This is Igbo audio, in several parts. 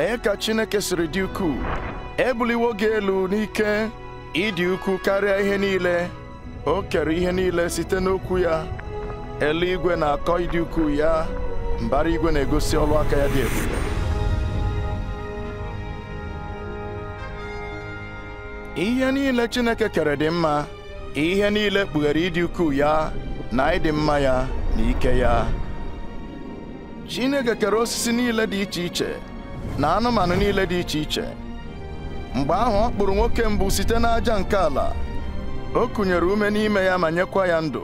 lee ka Chineke siri dị ukwuu ebuliwo gị elu n'ike ịdị ukwuu karịa ihe niile o kere ihe niile site n'okwu ya eluigwe na-akọ ịdị ukwuu ya mbara igwe na-egosi ọlụ aka ya dị ebube ihe niile Chineke kere dị mma ihe niile kpughere ịdị ukwuu ya na ịdị mma ya na ike ya Chineke kere osisi niile dị iche iche na anụmanụ niile dị iche iche mgbe ahụ ọ kpụrụ nwoke mbụ site n'aja nke ala o kụnyere ume n'ime ya ma nyekwa ya ndụ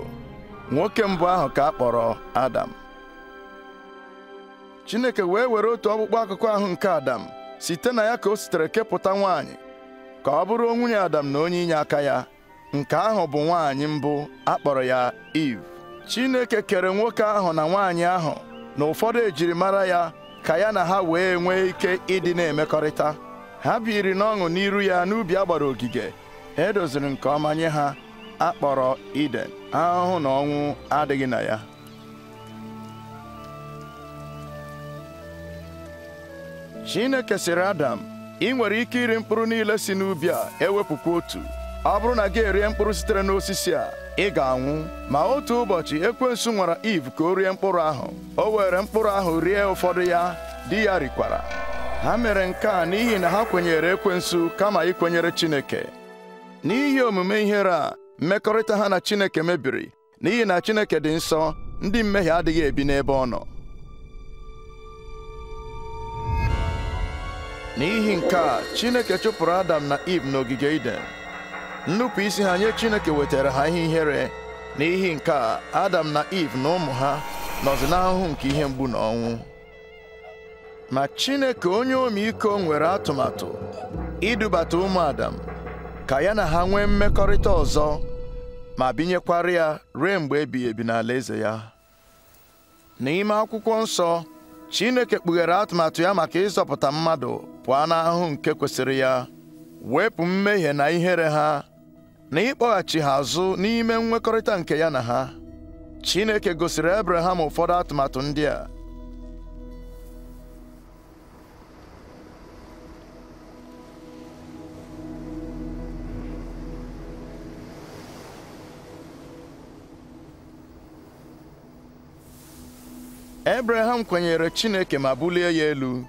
nwoke mbụ ahụ ka a kpọrọ Adam Chineke wee were otu ọkpụkpọ akụkọ ahụ nke Adam site na ya ka o sitere kepụta nwaanyị ka ọ bụrụ nwunye Adam na onye inye aka ya nke ahụ bụ nwaanyị mbụ a kpọrọ ya Iv. Chineke kere nwoke ahụ na nwaanyị ahụ na ụfọdụ ejirimara ya ka ya na ha wee nwee ike ịdị na-emekọrịta ha biri n'ọṅụ n'iru ya n'ubi a gbara ogige edoziri nke ọma nye ha akpọrọ Iden ahụhụ na ọnwụ adịghị na ya Chineke sịrị Adam ị nwere ike iri mkpụrụ niile si n'ubi a ewepụkwa otu ọ bụrụ na gị erie mkpụrụ sitere n'osisi a ị ga-anwụ ma otu ụbọchị ekwensu nwara Iv ka o rie mkpụrụ ahụ o were mkpụrụ ahụ rie ụfọdụ ya di ya rikwara ha mere nke a n'ihi na ha kwenyere ekwensu kama ikwenyere Chineke n'ihi omume ihere a mmekọrịta ha na Chineke mebiri n'ihi na Chineke dị nsọ ndị mmehie adịghị ebi n'ebe ọ nọ n'ihi nke a Chineke chụpụrụ Adam na Iv n'ogige Iden nnupụ isi ha nye chineke wetara ha ihe ihere n'ihi nke a adam na Iv na ụmụ ha nọzi n'ahụhụ nke ihe mgbu na ọnwụ ma chineke onye iko nwere atụmatụ idubata ụmụ adam ka ya na ha nwee mmekọrịta ọzọ ma binyekwara ya ruo mgbe ebighị ebi n'ala eze ya n'ime akwụkwọ nsọ chineke kpughere atụmatụ ya maka ịzọpụta mmadụ pụọ n'ahụ nke kwesịrị ya wepụ mmehie na ihere ha na ịkpọghachi ha azụ n'ime nwekọrịta nke ya na ha Chineke gosiri Abraham ụfọdụ atụmatụ ndị a Abraham kwenyere Chineke ma bulie ya elu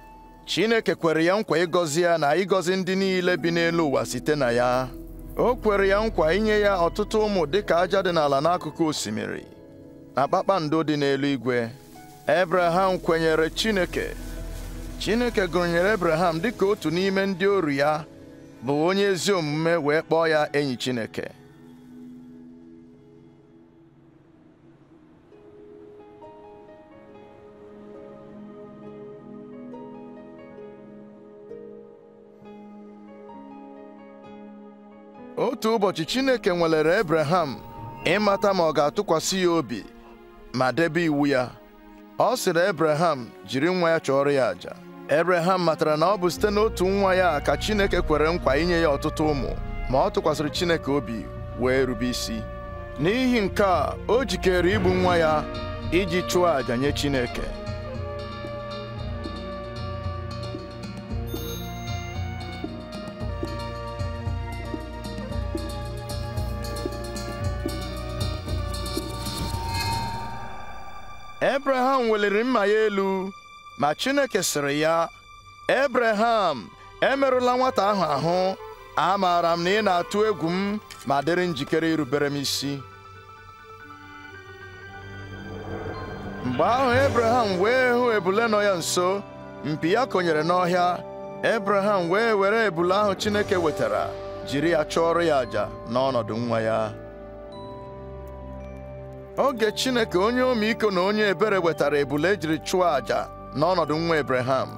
Chineke kwere ya nkwa ịgọzi ya na ịgọzi ndị niile bi n'elu ụwa site na ya o kwere ya nkwa inye ya ọtụtụ ụmụ dịka aja dị n'ala n'akụkụ osimiri na kpakpando dị n'eluigwe Ebraham kwenyere Chineke Chineke gụnyere Ebraham dịka otu n'ime ndị oru ya bụ onye ezi omume wee kpọọ ya enyi Chineke otu ụbọchị Chineke nwelere Ebreham ịmata ma ọ ga-atụkwasị ya obi ma debe iwu ya ọ sịrị Ebreham jiri nwa ya chọọrọ ya àjà Ebreham matara na ọ bụ site n'otu nwa ya ka Chineke kwere nkwa inye ya ọtụtụ ụmụ ma ọ tụkwasịrị Chineke obi wee rube isi n'ihi nke a o jikere igbu nwa ya iji chụọ àjà nye Chineke Ebraham weliri mma ya elu ma Chineke sịrị ya ebreham emerụla nwata ahụ ahụ amaara m na ị na-atụ egwu m ma dịrị njikere irubere m isi mgbe ahụ ebreham wee hụ ebule nọ ya nso mpi ya konyere n'ọhịa ebreham wee were ebule ahụ Chineke wetara jiri ya chụọrọ ya àjà n'ọnọdụ nwa ya oge Chineke onye iko na onye ebere wetara ebule ejiri chụọ àjà n'ọnọdụ nwa Ebreham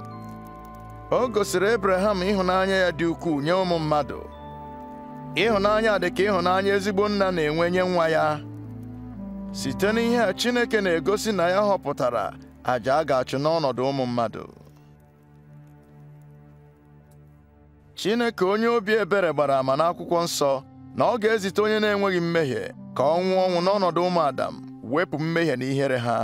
o gosiri Ebreham ịhụnanya ya dị ukwuu nye ụmụ mmadụ ịhụnanya dị ka ịhụnanya ezigbo nna na-enwe nye nwa ya site n'ihe a Chineke na-egosi na ya họpụtara àjà a ga-achụ n'ọnọdụ ụmụ mmadụ Chineke onye obi ebere gbara ama n'akwụkwọ nsọ na ọ ga-ezite onye na-enweghị mmehie ka ọ nwụọ ọnwụ n'ọnọdụ ụmụ Adam wepụ mmehie na ihere ha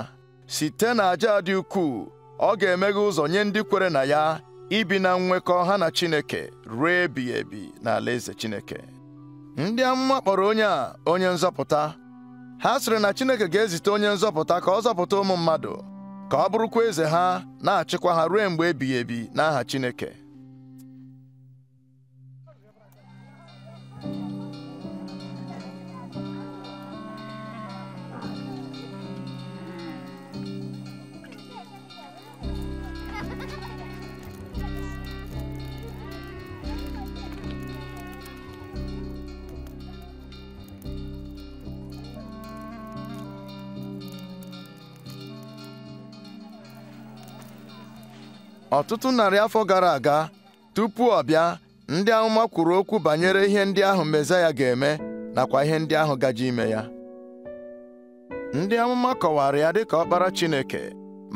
site na aja dị ukwuu ọ ga-emeghe ụzọ nye ndị kwere na ya ibi na nwekọ ha na Chineke ruo ebighị ebi ala eze Chineke ndị amụma kpọrọ onye a onye nzọpụta ha sịrị na Chineke ga-ezite onye nzọpụta ka ọ zọpụta ụmụ mmadụ ka ọ bụrụkwa eze ha na-achịkwa ha ruo mgbe ebighị ebi n'aha Chineke ọtụtụ narị afọ gara aga tupu ọ bịa ndị amụma kwuru okwu banyere ihe ndị ahụ mezaya ga-eme nakwa ihe ndị ahụ gaje ime ya ndị amụma kọwara ya dịka ọkpara Chineke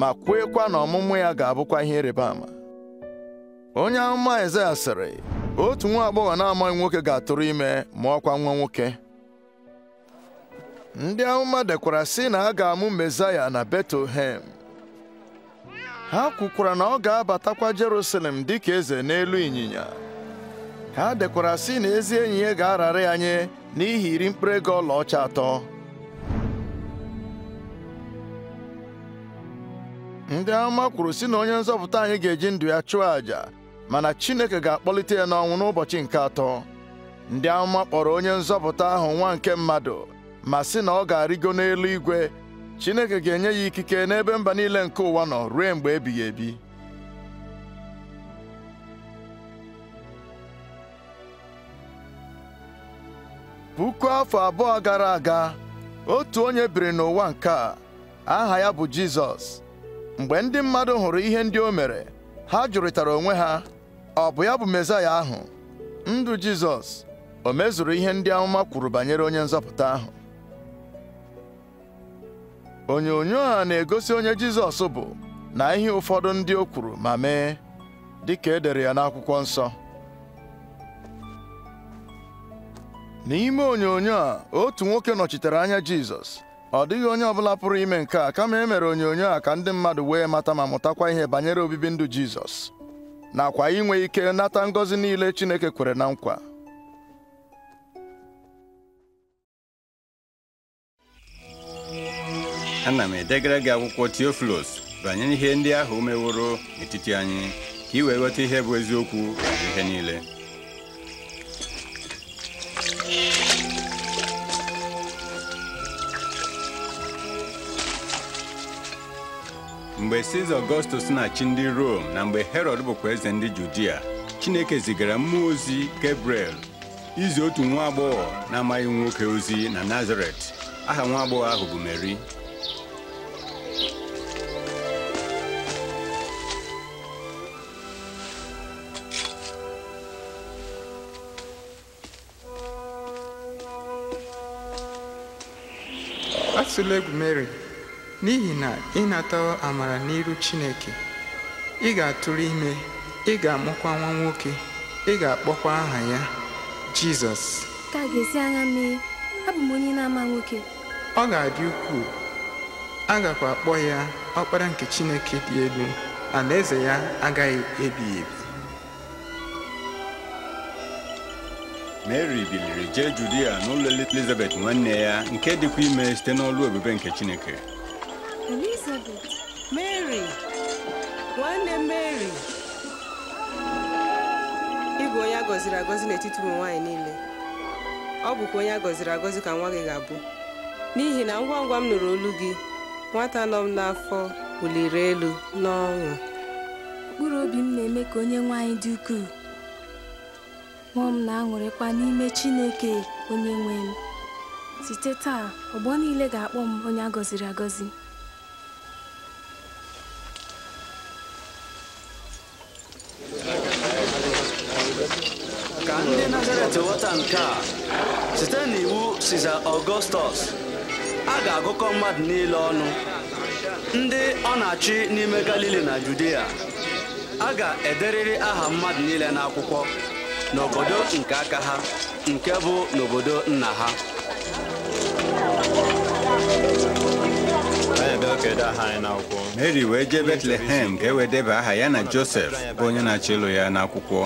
ma kweekwa na ọmụmụ ya ga-abụkwa ihe ịrịba ama onye amụma ezaya sịrị otu nwa agbọghọ na-amaghị nwoke ga-atụrụ ime mụọkwa nwa nwoke ndị amụma dekwara sị na a ga-amụ mezaya na Betlehem ha kwukwara na ọ ga-abatakwa Jerusalem dịka eze n'elu ịnyịnya ha dekwara sị na ezi enyi ya ga-arara ya nye n'ihi iri mkpụrụ ego ọlaọcha atọ ndị amụma kwuru sị na onye nzọpụta anyị ga-eji ndụ ya chụọ àjà mana Chineke ga-akpọlite ya n'ọnwụ n'ụbọchị nke atọ ndị amụma kpọrọ onye nzọpụta ahụ nwa nke mmadụ ma sị na ọ ga-arịgo n'elu igwe Chineke ga-enye ya ikike n'ebe mba niile nke ụwa nọ ruo mgbe ebighị ebi puku afọ abụọ gara aga otu onye biri n'ụwa nke a aha ya bụ Jizọs mgbe ndị mmadụ hụrụ ihe ndị o mere ha jụrịtara onwe ha ọ bụ ya bụ Mesaya ahụ ndụ Jizọs o mezuru ihe ndị amụma kwuru banyere onye nzọpụta ahụ onyonyo a na-egosi onye Jizọs bụ na ihe ụfọdụ ndị o kwuru ma mee dị ka e ya n'akwụkwọ nsọ n'ime onyonyo a otu nwoke nọchitere anya Jizọs ọ dịghị onye ọbụla pụrụ ime nke a kama e mere onyonyo a ka ndị mmadụ wee mata ma mụtakwa ihe banyere obibi ndụ Jizọs nakwa inwe ike nata ngọzi niile Chineke kwere na nkwa ana m edegara gị akwụkwọ Theophilus banyere ihe ndị ahụ meworo n'etiti anyị ka ị wee ghọta ihe bụ eziokwu na ihe niile mgbe Siza Ọgọstus na-achị ndị Rom na mgbe Herọd bụkwa eze ndị Judia Chineke zigara mmụọ ozi Gabriel izi otu nwa agbọghọ na-amaghị nwoke ozi na Nazaret aha nwa agbọghọ ahụ bụ Meri atụla egwu mary n'ihi na ịnata amara n'iru chineke ị ga-atụrụ ime ị ga-amụkwa nwa nwoke ị ga-akpọkwa aha ya jizọs ka ga-esi agha mee abụ onye na-ama nwoke ọ ga-adị ukwuu agakwa akpọ ya ọkpara nke chineke dị elu alaeze ya agaghị ebighị ebi mary biliri jee judia n'ụlọ elizabeth nwanne ya nke dịkwa ime site n'ọlụ ebube nke chineke elizabeth mary ịbụ onye a gọziri agọzi n'etiti ụmụ nwaanyị niile ọ bụkwa onye a gọziri agọzi ka nwa gị ga-abụ n'ihi na ngwa ngwa m nụrụ olu gị nwata nọ m n'afọ wuliri elu n'ọṅụ mkpụrụ obi m na-eme ka onye nwaanyị dị ukwuu Mmụọ m na-aṅụrịkwa n'ime Chineke onye nwe m. Site taa, ọgbọ niile ga-akpọ m onye a gọziri agọzi. Ka ndị Nazaret ghọta nke a, site n'iwu Siza Ọgọstọs, a ga-agụkọ mmadụ niile ọnụ ndị ọ na-achị n'ime Galili na Judea a ga-ederịrị aha mmadụ niile n'akwụkwọ n'obodo nke aka ha nke bụ n'obodo nna ha mary wee jee betlehem ka e wee aha ya na josef bụ onye na-achọ ịlụ ya n'akwụkwọ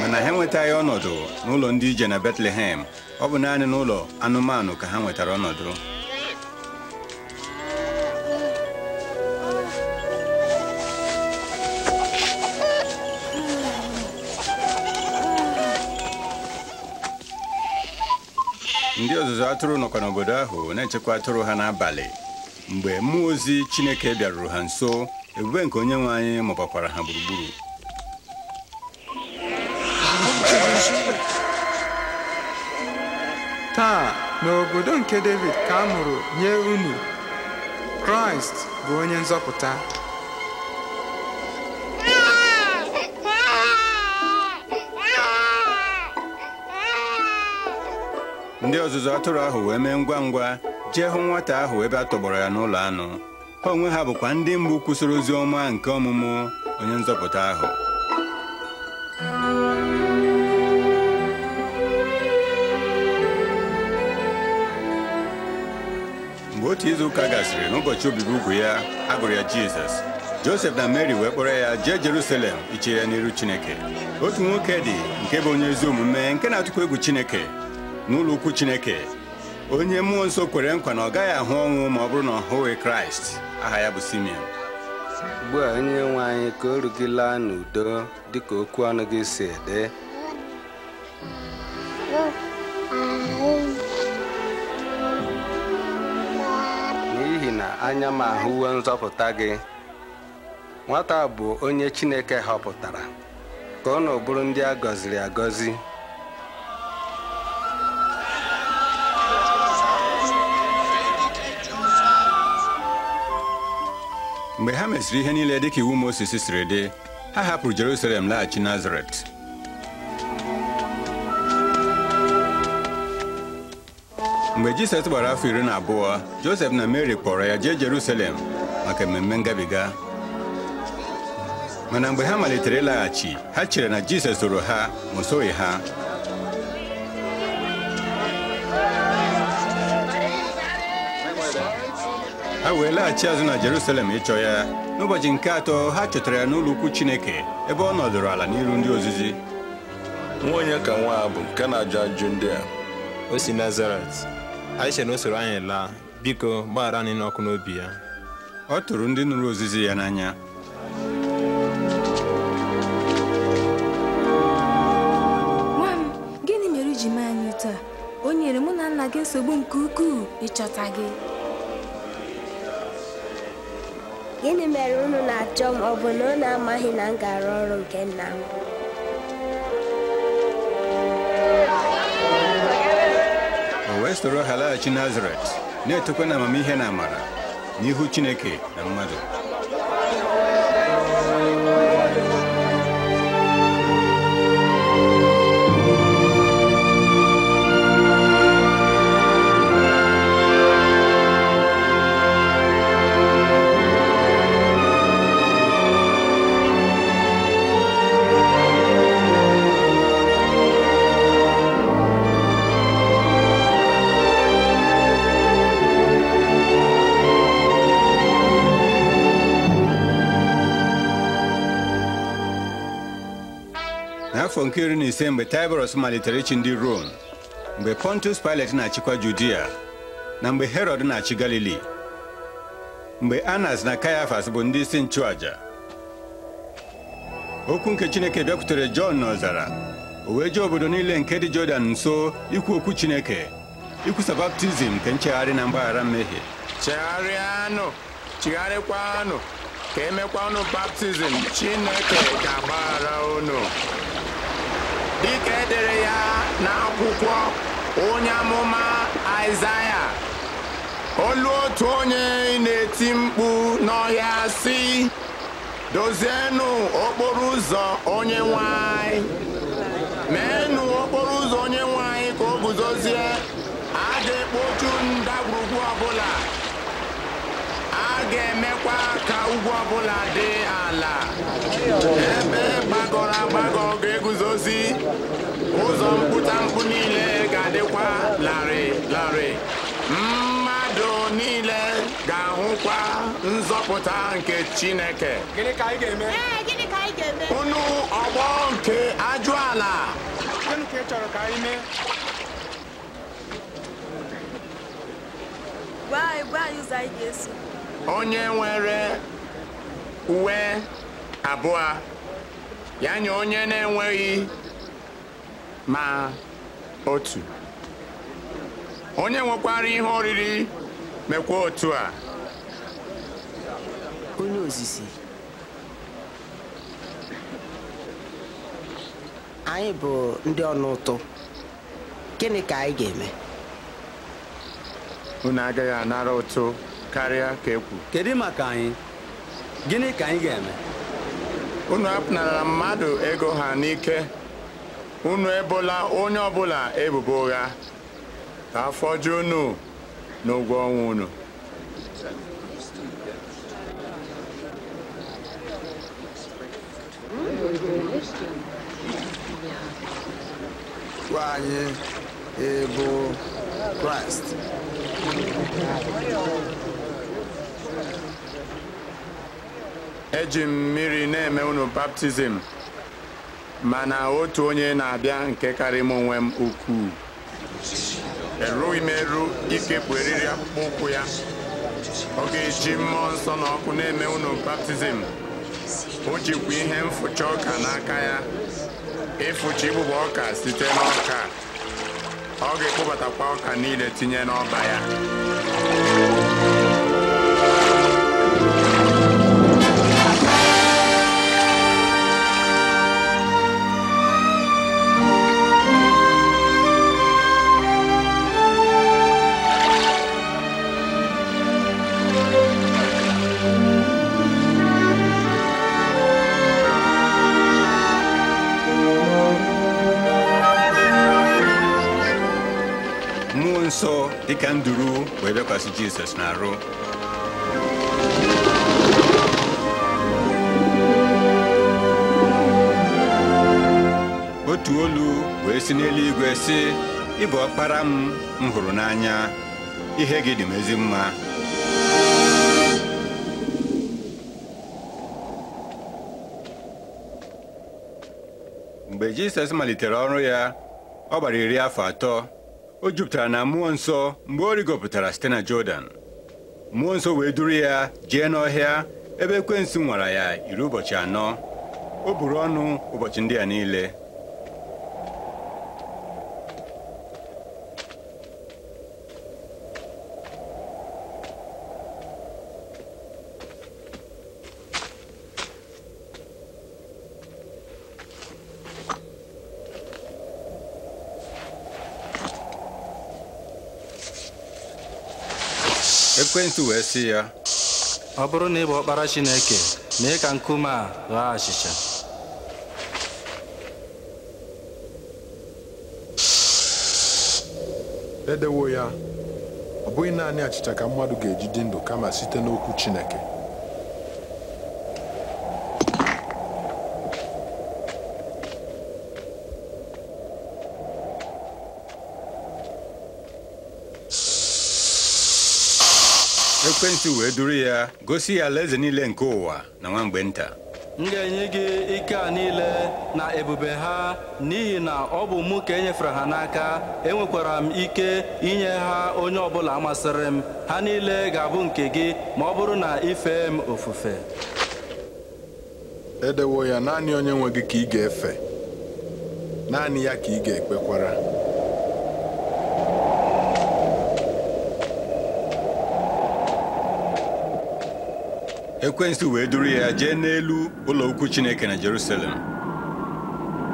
mana ha enwetaghị ọnọdụ n'ụlọ ndị ije na betlehem ọ bụ naanị n'ụlọ anụmanụ ka ha nwetara ọnọdụ ndị ọzụzụ atụrụ nọkwa n'obodo ahụ na-echekwa atụrụ ha n'abalị mgbe mmụọ ozi Chineke bịaruru ha nso ebube nke onye nwe anyị mụbakwara ha gburugburu taa n'obodo nke David ka a mụrụ nye unu Kraịst bụ onye nzọpụta ndị ọzụzụ atụrụ ahụ wee mee ngwa ngwa jee hụ nwata ahụ ebe a tọgbọrọ ya n'ụlọ anụ ha onwe ha bụkwa ndị mbụ kwụsịrị ozi ọma nke ọmụmụ onye nzọpụta ahụ mgbe otu izu ụka gasịrị n'ụbọchị obibi ugwu ya agụrụ ya jizọs josef na mary wee kpọrọ ya jee jerusalem iche ya n'iru chineke otu nwoke dị nke bụ onye ezi omume nke na-atụkwa egwu chineke n'ụlọ ukwu Chineke onye mmụọ nsọ kwere nkwa na ọ gaghị ahụ ọnwụ ma ọ bụrụ na ọ hụghị Kraịst aha ya bụ Simeon ugbu onye nwe anyị ka oru gị laa n'udo dịka okwu ọnụ gị si ede n'ihi na anya m ahụwo nzọpụta gị nwata bụ onye Chineke họpụtara ka ọ na bụrụ ndị a gọziri agọzi mgbe ha mesịrị ihe niile dịka iwu mosisi siri dị ha hapụrụ Jerusalem laghachi Nazaret mgbe Jisọs gbara afọ iri na abụọ Josef na Mary kpọrọ ya jee Jerusalem maka mmemme ngabiga mana mgbe ha malitere ịlaghachi ha chere na Jisọs soro ha ma o ha ha wee laghachi azụ na Jerusalem ịchọ ya n'ụbọchị nke atọ ha chọtara ya n'ụlọ ukwu Chineke ebe ọ nọdụrụ ala n'iru ndị ozizi nwa onye ka nwa a bụ nke na-ajụ ajụ ndị a o si Nazaret anyị na o anyị laa biko gbaghara anyị n'ọkụ n'obi ya ọ tụrụ ndị nụrụ ozizi ya n'anya nwa m gịnị mere iji mee anyị taa o nyere mụ na nna gị nsogbu nke ukwuu ịchọta gị gịnị mere unu na-achọ m ọ bụ na unu amaghị na m gara ọrụ nke nna m o wee soro ha laghachi nazaret na-etokwa na amamihe na amara n'ihu chineke na mmadụ nke iri na ise mgbe Taịbọrọs malitere ịchị ndị Rom mgbe Pontus spilet na-achịkwa Judia na mgbe Herod na-achị Galili mgbe Anas na Kayafas bụ ndị isi nchụaja okwu nke Chineke bịakwutere Jọn n'ọzara o wee obodo niile nke dị Jọdan nso ikwu okwu Chineke ikwusa baptizim nke nchegharị na mgbaghara mmehie chegharịanụ chigharịkwanụ ka e baptizim Chineke ga-agbaghara dịka edere ya n'akwụkwọ onye amụma Aịzaya olu otu onye na-eti mkpu n'ọhịa si dozienụ okporo ụzọ onye nwanyị meenụ okporo ụzọ onye nwanyị ka o guzozie a ga-ekpochu ndagwurugwu ọbụla a ga-emekwa ka ugwu ọbụla dị ala ebe gbagọrọ agbagọ ụzọ mkpụ niile ga-adịkwa larịị larịị mmadụ niile ga-ahụkwa nzọpụta nke Chineke gịnị ka anyị ga-eme unu ọgbọ nke ajụala chọrọ ka ga onye nwere uwe abụọ ya nye onye na-enweghị ma otu onye nwekwara ihe oriri mekwa otu a onye ozizi anyị bụ ndị ọnụ ụtụ gịnị ka anyị ga-eme unu agaghị anara ụtụ karịa ka ekwu kedu maka anyị gịnị ka anyị ga-eme unu apụnara mmadụ ego ha n'ike unu ebola onye ọbụla ebubo ụgha ka afọ ju unu n'ụgwọ ọnwa unu gwa anyị ịbụ kraịst eji m mmiri na-eme unu baptizim mana otu onye na-abịa nke karịa m onwe m ukwuu erughị m eru ikepụ eriri akpụkpọ ụkwụ ya ọ ga-eji mmụọ nsọ na ọkụ na-eme unu baptizim o jikwa ihe mfụcha ọka n'aka ya ịfụcha igbụba ọka site n'ọka ọ ga-ekpụbatakwa ọka niile tinye n'ọba ya dịka nduru wee bịakwasị Jizọs arụ otu olu wee si n'eluigwe sị "Ịbụ akpara ọkpara m m hụrụ n'anya ihe gị dị m ezi mma mgbe Jizọs malitere ọrụ ya ọ gbara iri afọ atọ o jupụtara na mmụọ nsọ mgbe ọ rigopụtara site na Jọdan mmụọ nsọ wee duru ya jee n'ọhịa ebe kwensi nwara ya iri ụbọchị anọ o buru ọnụ ụbọchị ndị a niile ekwentị wee sị ya ọ bụrụ na ị bụ ọkpara Chineke mee ka nkume a ghaa achịcha edewo ya ọ bụghị naanị achịcha ka mmadụ ga-eji ndụ kama site n'okwu Chineke ekwentị wee duru ya gosi ya alaeze niile nke ụwa na nwa mgbe nta m ga-enye gị ike a niile na ebube ha n'ihi na ọ bụ mụ ka enyefere ha n'aka enwekwara m ike inye ha onye ọ bụla masịrị m ha niile ga-abụ nke gị ma ọ bụrụ na ife m ofufe edewo ya naanị onye nwe gị ka ị ga-efe naanị ya ka ị ga-ekpekwara ekwensu wee duru ya jee n'elu ụlọ ukwu chineke na jerusalem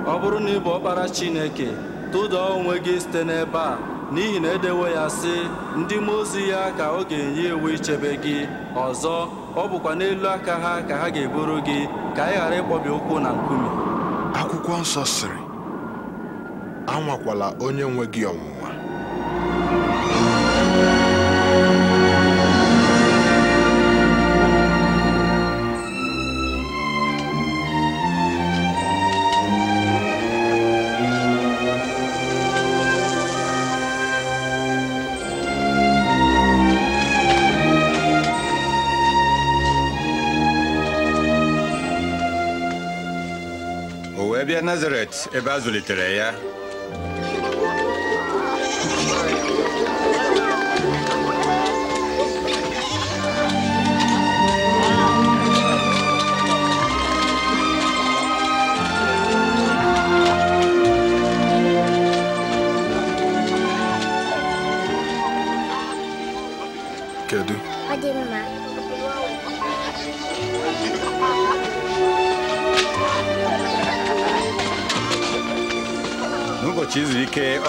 ọ bụrụ na ị bụ ọkpara chineke tụda onwe gị site n'ebe a n'ihi na edewo ya sị ndị mmụọ ozi ya ka ọ ga-enye iwu ichebe gị ọzọ ọ bụkwa n'elu aka ha ka ha ga-eburu gị ka ị ghara ịkpọbi ụkwụ na nkume akwụkwọ nsọ sịrị anwakwala onye nwe gị ọnwụ ebe a zụlitere ya eh.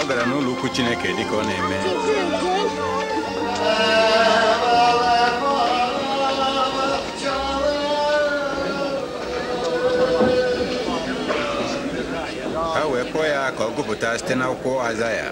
ọ gara n'ụlọ ukwu Chineke dịka ọ na-eme ha wee kpọọ ya ka ọ gụpụta site n'akwụkwọ ya.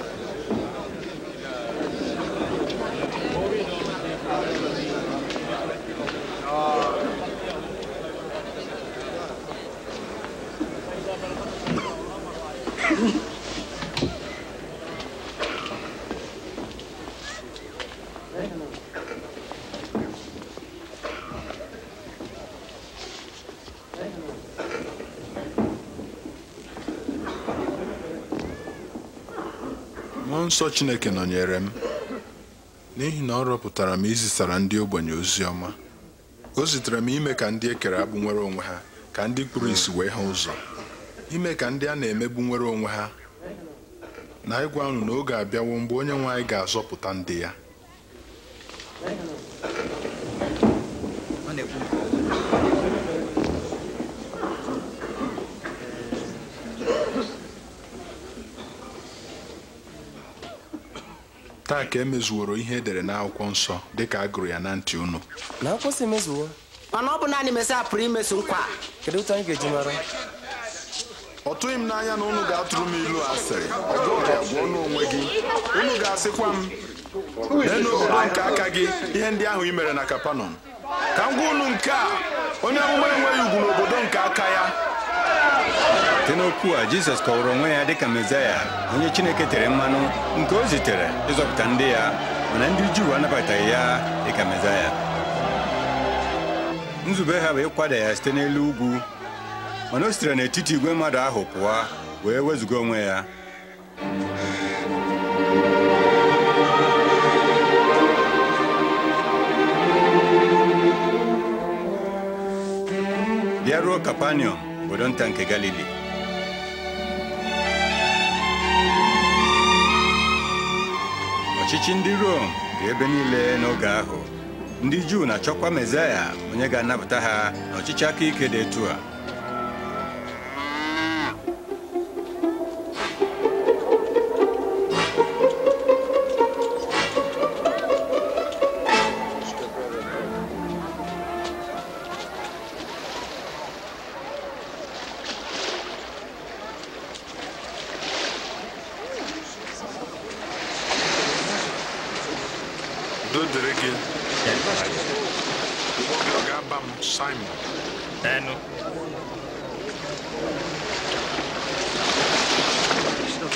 nsọ Chineke nọnyere m n'ihi na ọ rọpụtara m izisara ndị ogbenye ozi ọma o zitere m ime ka ndị ekere agbụ nwere onwe ha ka ndị kpụrụ isi wee ha ụzọ ime ka ndị a na-emegbu nwere onwe ha na ịgwa unu na oge abịawo mgbe onye nwe anyị ga-azọpụta ndị ya a e emezuworo ihe edere n'akwụkwọ nsọ ka a gụrụ ya na ntị unu na akwụsị emezuwo mana ọ bụ naanị Mesaya pụrụ imezu nkwa kedu otu anyị ga-eji mara ọ tụghị m n'anya na unu ga-atụrụ m ilu asịrị ọ bụghị onwe gị unu ga-asịkwa m lee nke aka gị ihe ndị ahụ i mere na Kapanọm ka m gwa unu nke a onye amụma enweghị ugwu n'obodo nke aka ya site n'okwu a jizọs kọwara onwe ya dịka mezaya onye chineke tere mmanụ nke o zitere ịzọpụta ndị ya mana ndị juu anabataghị ya dịka mezaya nzube ha bụ ịkwada ya site n'elu ugwu mana o sitere n'etiti igwe mmadụ ahụ pụọ wee wezụga onwe ya bịaruo kapanium obodo nta nke Galili ọchịchị ndị Rom ka ebe niile n'oge ahụ ndị Juu na-achọkwa Mesaya onye ga-anapụta ha n'ọchịchị aka ike dị etu a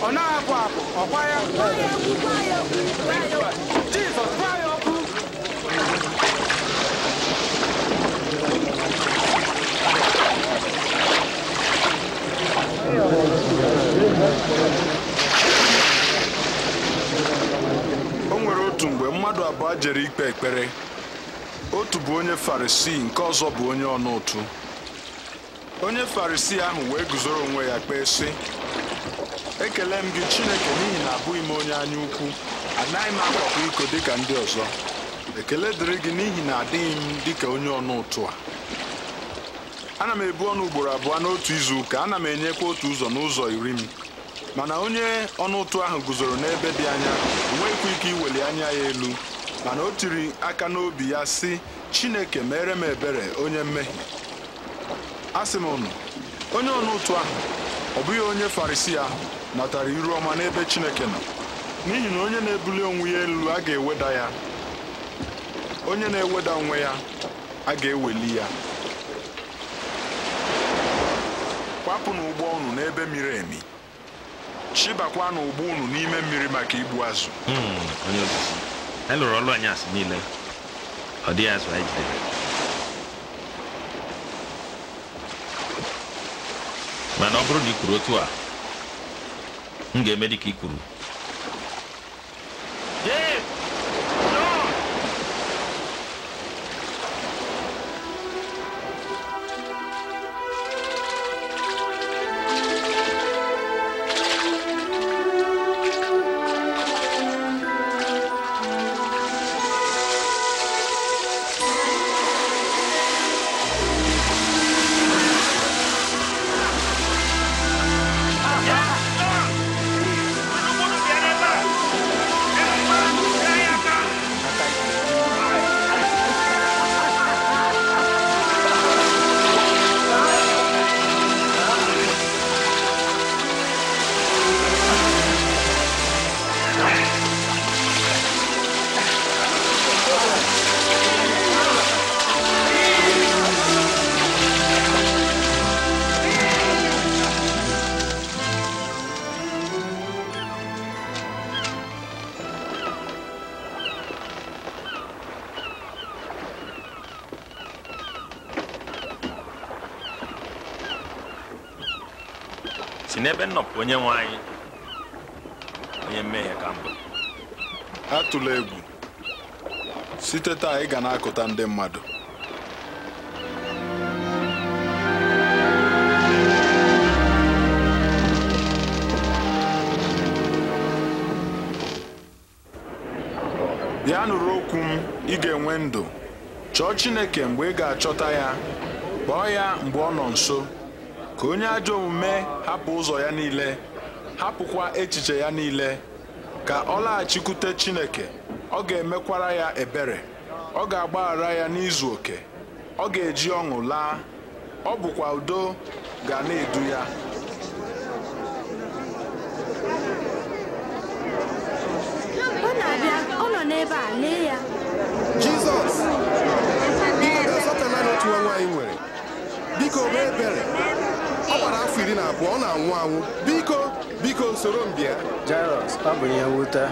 ọ na-apụ apụ ọkwa ya Jizọs gwa ya okwu o nwere otu mgbe mmadụ abụọ jere ikpe ekpere otu bụ onye farisii nke ọzọ bụ onye ọnụ ụtụ onye farisii ahụ wee guzoro onwe ya kpee sị ekele m gị Chineke n'ihi na abụghị m onye anya ukwu anaghị m akwapụ iko dịka ndị ọzọ ekele dịrị gị n'ihi na adịghị m dịka onye ọnụ ụtụ a ana m ebu ọnụ ugboro abụọ n'otu izu ụka ana m enyekwa otu ụzọ n'ụzọ iri m mana onye ọnụ ụtụ ahụ guzoro n'ebe dị anya enweghịkwa ike iweli anya ya elu mana o tiri aka n'obi ya sị Chineke mere m ebere onye mmehie asị m onye ọnụ ụtụ ahụ ọ bụghị onye Farisii ahụ natara iru ọma n'ebe Chineke nọ n'ihi na onye na-ebuli onwe ya elu a ga-eweda ya onye na-eweda onwe ya a ga-eweli ya kwapụ na ụgbọ unu n'ebe miri emi chịbakwa ụgbọ unu n'ime mmiri maka igbu azụ anyị hmm, e lụrụ ọlụ anyị asị niile ọ azụ mana ọ bụrụ na kwuru otu a m ga-eme ka i kwuru nnọpụ onye nwe anyị onye mmehie ka mbụ atụla egwu site taa ị ga na-akụta ndị mmadụ bịa nụrụ okwu m ị ga-enwe ndụ chọọ Chineke mgbe ị ga-achọta ya kpọọ ya mgbe ọ nọ nso ka onye ajọ omume hapụ ụzọ ya niile hapụkwa echiche ya niile ka ọ laghachikwute Chineke ọ ga-emekwara ya ebere ọ ga-agbaghara ya n'izu oke ọ ga-eji ọṅụ laa ọ bụkwa udo ga na-edu ya ọ na-abịa ọ nọ n'ebe a lee ya Jizọs biko nwa nwaanyị nwere biko mee ebere gbara afọ iri na abụọ ọ na-anwụ anwụ biko biko soro mbịa. bịa ọ bụ ihe nwute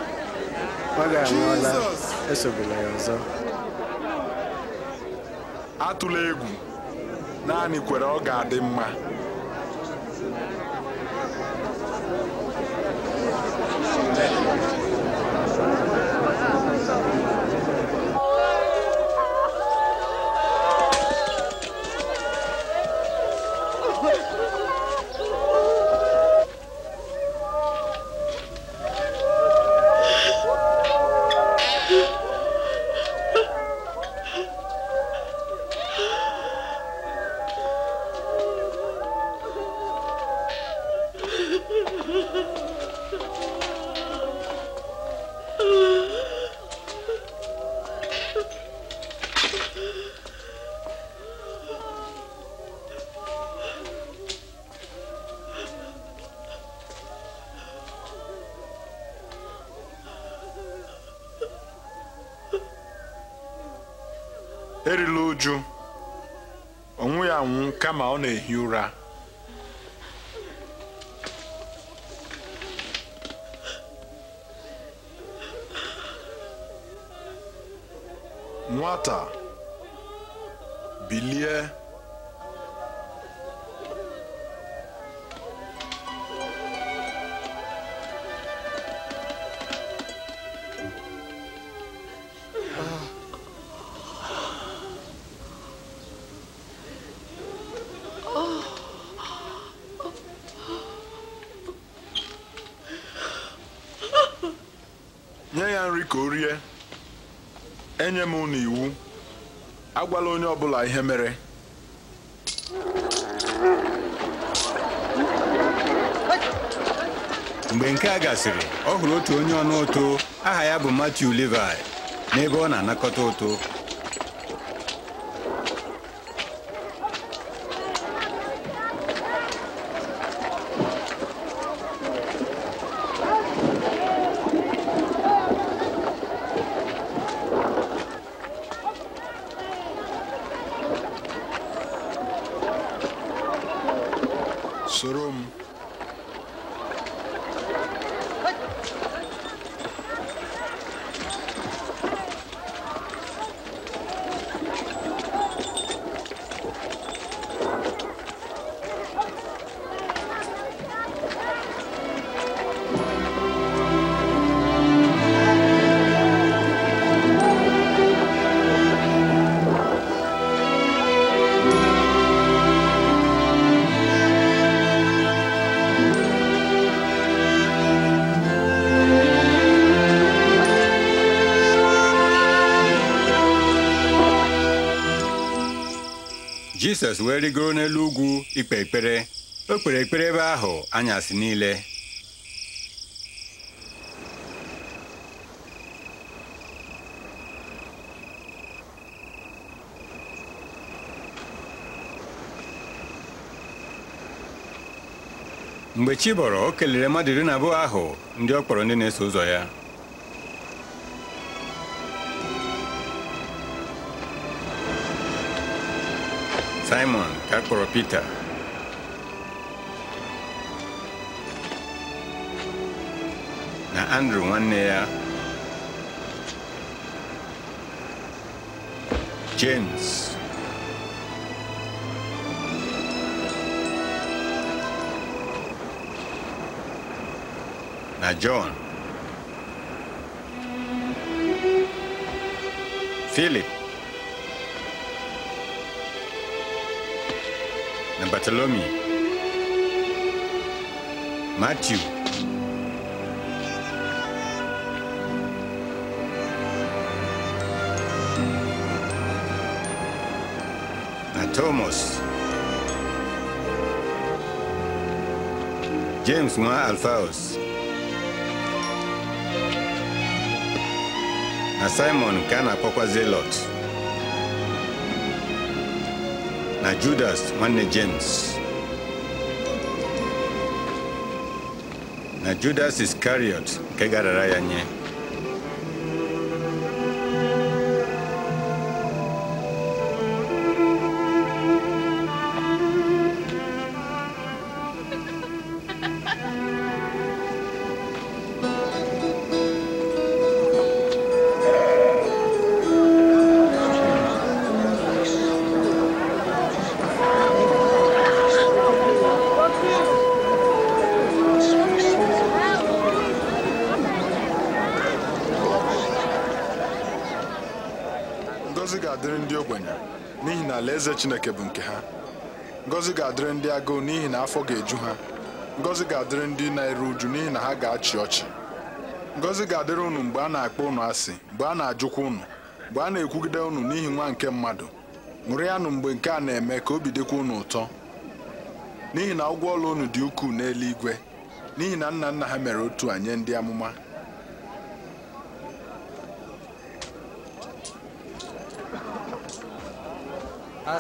ọ ga ya ọzọ atụla egwu naanị kwere ọ ga-adị mma kama ọ na-ehi ụra nwata ọbụla ihe mere mgbe nke a gasịrị ọ hụrụ otu onye ọnụ ụtụ aha ya bụ Matthew Levi n'ebe ọ na-anakọta ụtụ jisọs wee rigoro n'elu ugwu ikpe ekpere o kpere ekpere ebe ahụ anyasị niile mgbe chi bọrọ o kelere mmadụ iri na abụọ ahụ ndị ọ kpọrọ ndị na-eso ụzọ ya Simon Peter, Na Andrew one ya James na John Philip na bartolomi Matthew, na Thomas, James mwa Alphaeus na Simon kana kwa kwa Zelote. na Judas nwanne James na Judas Iscariot nke gara ya nye Alaeze Chineke bụ nke ha Ngozi ga-adịrị ndị agụụ n'ihi na afọ ga-eju ha Ngozi ga-adịrị ndị na-eru uju n'ihi na ha ga-achị ọchị Ngozi ga-adịrị ụnụ mgbe a na-akpọ ụnụ asị mgbe a na-ajụkwa ụnụ, mgbe a na-ekwugide ụnụ n'ihi nwa nke mmadụ ṅụrịanụ mgbe nke a na-eme ka obi dịkwa ụnụ ụtọ n'ihi na ụgwọ ọla ụnụ dị ukwuu n'eluigwe n'ihi na nna nna ha mere otu a nye ndị amụma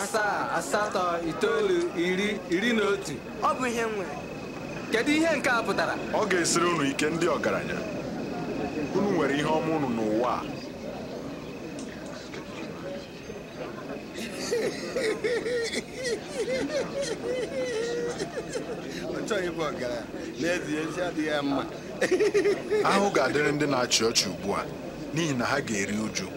asaa asatọ itoolu iri iri na otu ọ bụ ihe nwere kedu ihe nke a pụtara ọ ga-esiri unu ike ndị ọgaranya unu nwere ihe ọma unu n'ụwa a ahụ ga-adịrị ndị na-achị ọchị ugbu a n'ihi na ha ga-eri uju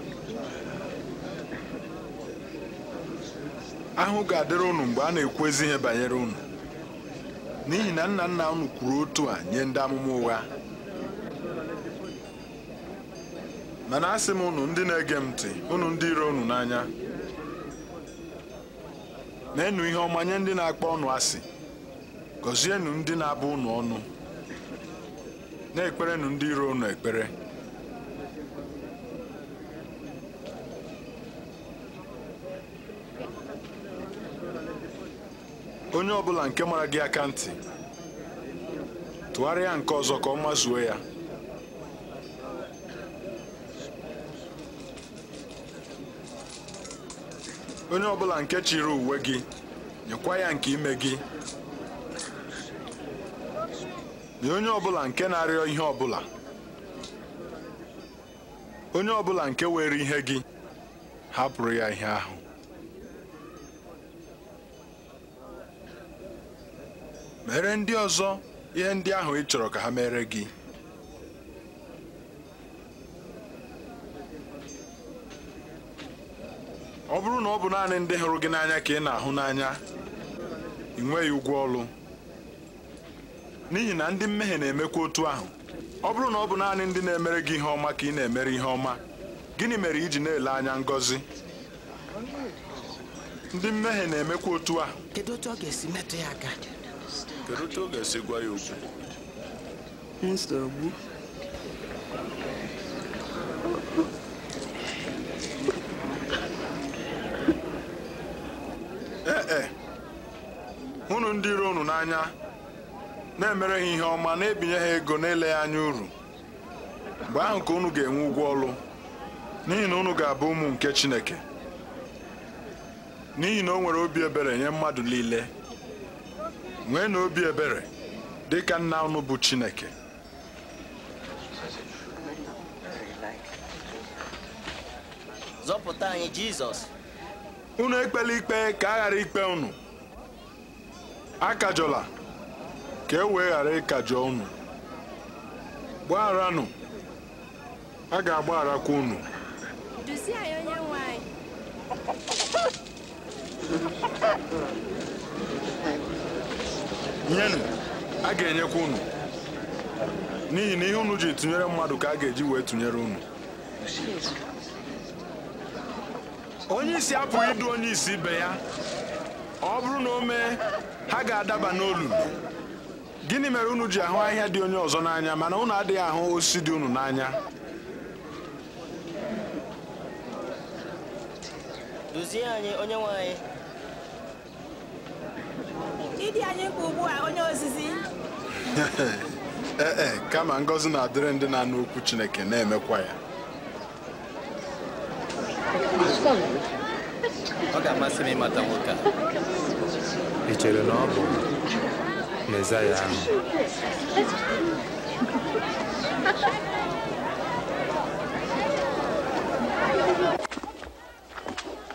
ahụ ga-adịrị ụnụ mgbe a na-ekwu ezi ihe banyere ụnụ n'ihi na nna nna unu kwuru otu a nye ndị amụma ụgha mana asị m ụnụ ndị na-ege m ntị ụnụ ndị iro ụnụ n'anya na-enu ihe ọma nye ndị na-akpọ ọnụ asị gọzienụ ndị na-abụ ụnụ ọnụ na-ekperenụ ndị iro ụnụ ekpere onye ọ bụla nke mara gị aka ntị tụgharịa nke ọzọ ka ọ mazuo ya onye ọbụla nke chiri uwe gị nyekwa ya nke ime gị na onye ọbụla nke na-arịọ ihe ọbụla onye ọbụla nke were ihe gị hapụrụ ya ihe ahụ mere ndị ọzọ ihe ndị ahụ ị chọrọ ka ha mere gị ọ bụrụ na ọ bụ naanị ndị hụrụ gị n'anya ka ị na-ahụ n'anya ị nweghị ụgwọ ọlụ n'ihi na ndị mmehie na-emekwa otu ahụ ọ bụrụ na ọ bụ naanị ndị na-emere gị ihe ọma ka ị na-emere ihe ọma gịnị mere iji na-ele anya ngọzi ndị mmehie na-emekwa otu a. kedu otu ọ ga-esi metụ ya aka Kedu otu ọ ga-esi gwa ya okwu? Ee e, e ndị iro unu n'anya na-emere ha ihe ọma na-ebinye ha ego na-ele ya anya uru mgbe ahụ ka unu ga-enwe ụgwọ ọlụ n'ihi na unu ga-abụ ụmụ nke Chineke n'ihi na o nwere obi ebere nye mmadụ niile nwee na obi ebere dị ka nna unu bụ Chineke zọpụta anyị Jizọs unu ekpela ikpe ka a ghara ikpe unu akajọla ka e wee ghara ịkajọ unu gbagharanụ a ga-agbagharakwa unu duzie onye nwe nyenụ a ga-enyekwa unu n'ihi na ihe unu ji tụnyere mmadụ ka a ga-eji wee tụnyere unu onye isi apụghị idu onye isi ibe ya ọ bụrụ na o mee ha ga-adaba n'olulu gịnị mere unu ji ahụ ahịhịa dị onye ọzọ n'anya mana unu adịghị ahụ osisi dị unu n'anya anyị onye nwe ịdị anyị mkpa ugbu a onye ozizi ee ee eh, eh, kama ngọzi na-adịrị ndị na-anụ okwu Chineke na-emekwa ya ọ ga-amasị m ịmata nwoke a ị chere na ọ bụ Mezaya ahụ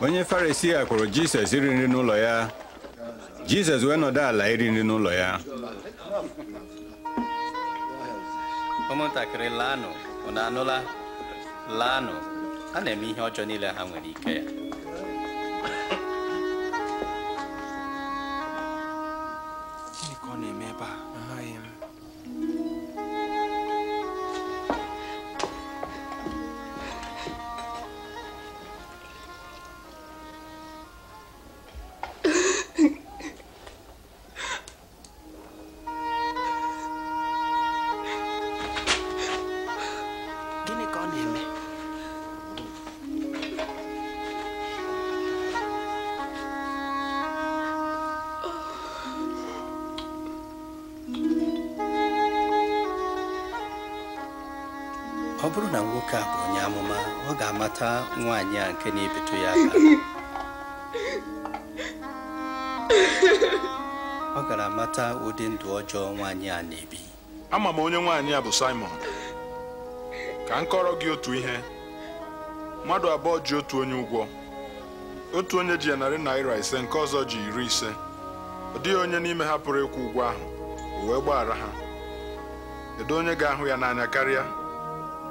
onye Farisi a kwụrụ Jizọs iri nri n'ụlọ ya Jizọs wee nọdụ ala iri nri n'ụlọ ya ụmụntakịrị laanụ na anụla laanụ a na-eme ihe ọjọọ niile ha nwere ike ya nwaanyị a nke na-ebetu ya aka ọ gara mata ụdị ndụ ọjọọ nwaanyị a na-ebi ama m onye nwaanyị a bụ Simon ka m kọrọ gị otu ihe mmadụ abụọ ji otu onye ụgwọ otu onye ji ya narị naira ise nke ọzọ ji iri ise ọ dịghị onye n'ime ha pụrụ ịkwụ ụgwọ ahụ o wee gbaghara ha kedu onye ga-ahụ ya n'anya karịa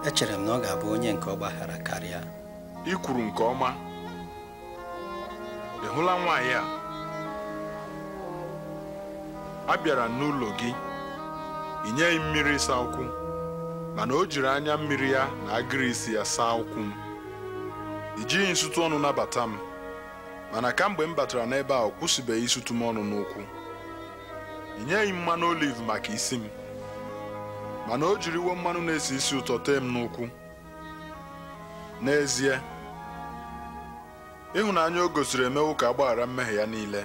echere m na ọ ga-abụ onye nke ọ gbaghara karịa i kwuru nke ọma ị hụla nwaanyị a a bịara n'ụlọ gị ị nyeghị mmiri ịsa ụkwụ mana o jiri anya mmiri ya na agịrị isi ya saa ụkwụ m i jighị nsụtụ ọnụ nabata m mana kamgbe m batara n'ebe a ọ kwụsịbeghị ịsụtụ m ọnụ n'ụkwụ ị mmanụ oliv maka isi m mana o jiriwo mmanụ na-esi isi ụtọ tee m n'ụkwụ n'ezie ịhụnanya o gosiri emewo ka agbaghara mmehie ya niile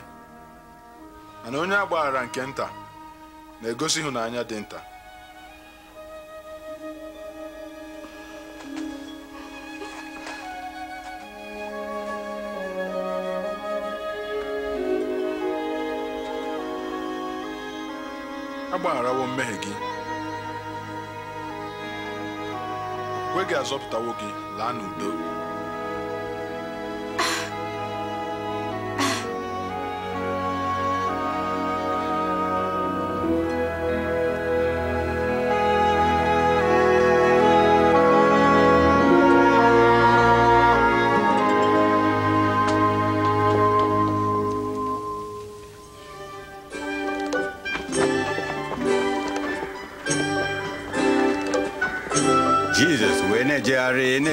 mana onye agbaghara nke nta na-egosi ịhụnanya dị nta agbagharawo mmehie gị okwukwe gị azọpụtawo gị laa n'udo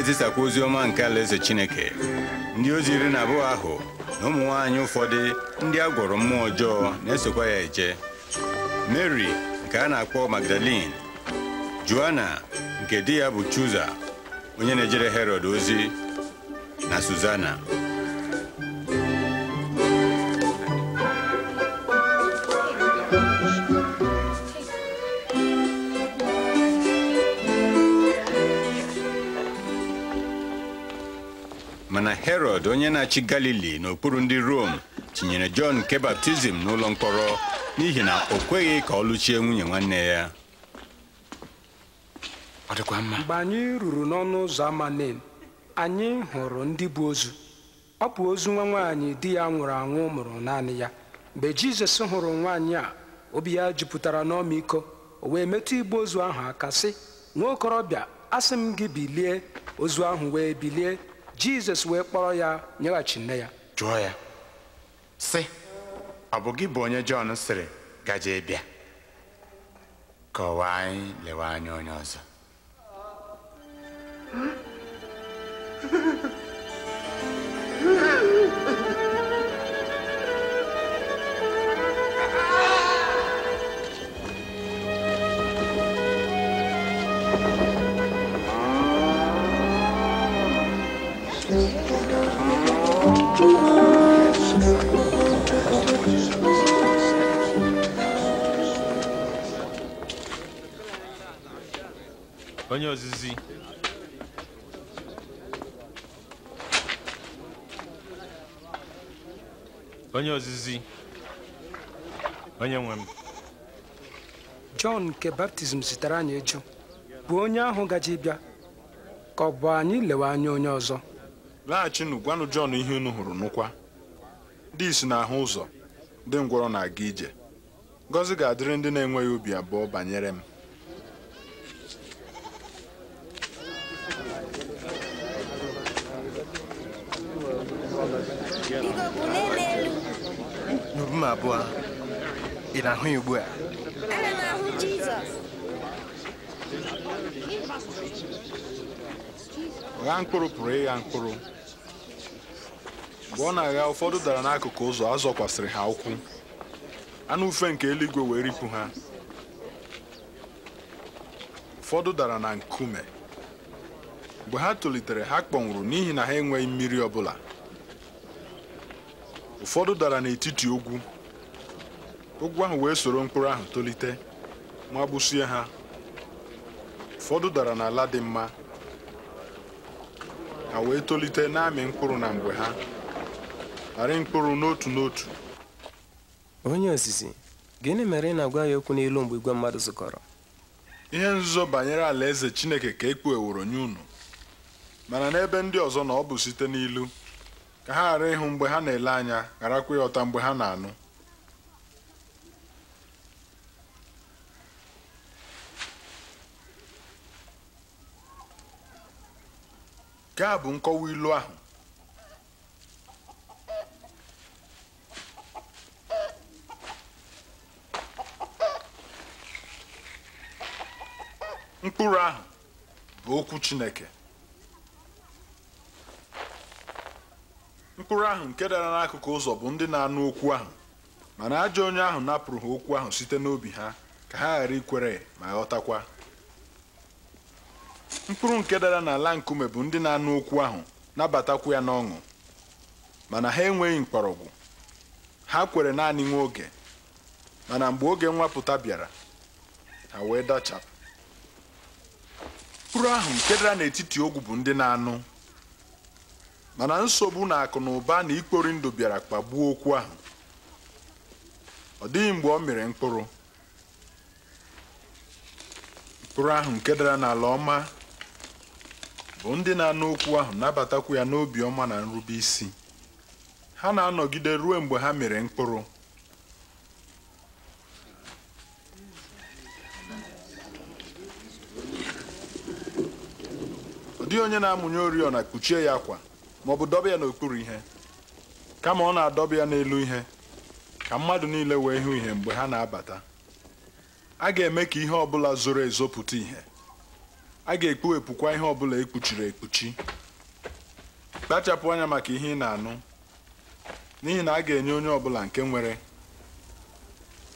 na-ezisakwa ozi ọma nke alaeze Chineke ndị ozi iri na abụọ ahụ na ụmụ nwaanyị ụfọdụ ndị a gwọrọ mmụọ ọjọọ na-esokwa ya eje Mary nke a na-akpọ Magdalene Joanna nke di ya bụ Chuza onye na-ejere Herod ozi na Suzana onye na-achị galili n'okpuru ndị rom tinyere jọn nke baptizim n'ụlọ mkpọrọ n'ihi na o kweghị ka ọ lụchie nwunye nwanne ya ọ dịkwa mma. mgbe anyị ruru n'ọnụ ụzọ ama anyị hụrụ ndị bụ ozu ọ bụ ozu nwa nwaanyị di ya nwụrụ anwụ mụrụ naanị ya mgbe jizọs hụrụ nwaanyị a obi ya jupụtara n'ọmịiko o wee metụ igbu ozu ahụ aka sị nwa okorobịa asị m gị bilie ozu ahụ wee bilie jizọs wee kpọrọ ya nyeghachi nne ya jụọ ya sị ọ bụ gị bụ onye jọn sịrị gaje bịa kọwaa anyị lewe anya onye ọzọ onye ozizi onye ozizi onye nwe m Jọn nke baptizim zitere anyị eju bụ onye ahụ gaji bịa ka ọ bụ anyị lewe anya onye ọzọ laghachinụ gwanụ Jọn ihe unu hụrụ nụkwa ndị isi na-ahụ ụzọ ndị ngwọrọ na-aga ije ngozi ga-adịrị ndị na-enweghị obi abụọ banyere m m abụọ ị na-ahụ ya ugbu a ana m ahụ gha mkpụrụ pụrụ ịgha mkpụrụ mgbe ọ na-agha ụfọdụ dara n'akụkụ ụzọ a zọkwasịrị ha ụkwụ anụ ufe nke eluigwe wee ripụ ha ụfọdụ dara na nkume mgbe ha tolitere ha kpọnwụrụ n'ihi na ha enweghị mmiri ọ bụla ụfọdụ dara n'etiti ogwu ogwu ahụ wee soro mkpụrụ ahụ tolite ma gbusie ha ụfọdụ dara n'ala dị mma ha wee tolite na-amị mkpụrụ na mgbe ha arị mkpụrụ n'otu n'otu onye ozizi gịnị mere ị na-agwa ya okwu n'ilu mgbe igwe mmadụ zukọrọ ihe nzuzo banyere alaeze chineke ka e kpugheworo nye unu mana n'ebe ndị ọzọ na ọ bụ site n'ilu ka ha ghara ịhụ mgbe ha na-ele anya gharakwa ịghọta mgbe ha na-anụ nke a bụ nkọwa ilu ahụ mkpụrụ ahụ bụ okwu Chineke mkpụrụ ahụ nke dara n'akụkụ ụzọ bụ ndị na-anụ okwu ahụ mana ajọ onye ahụ napụrụ ha okwu ahụ site n'obi ha ka ha ghara ikwere ma ghọtakwa mkpụrụ nke dara n'ala nkume bụ ndị na-anụ okwu ahụ nabatakwu ya n'ọṅụ mana ha enweghị mkpọrọgwụ ha kwere naanị nwa oge mana mgbe oge nwapụta bịara ha wee dachapụ mkpụrụ ahụ nke dara n'etiti ogwu bụ ndị na-anụ mana nsogbu na akụ na ụba na ikpori ndụ bịara kpagbuo okwu ahụ ọ dịghị mgbe ọ mịrị mkpụrụ mkpụrụ ahụ nke dara n'ala ọma bụ ndị na-anụ okwu ahụ nabatakwu ya n'obi ọma na nrube isi ha na-anọgide ruo mgbe ha mere mkpụrụ ọ dịghị onye na-amụnye oriọna kpuchie ya akwa maọbụ dọba ya n'okpuru ihe kama ọ na-adọba ya n'elu ihe ka mmadụ niile wee hụ ihe mgbe ha na-abata a ga-eme ka ihe ọbụla zoro ezo pụta ihe a ga-ekpuwepụkwa ihe ọbụla ekpuchiri ekpuchi kpachapụ anya maka ihe ị na-anụ n'ihi na a ga-enye onye ọbụla nke nwere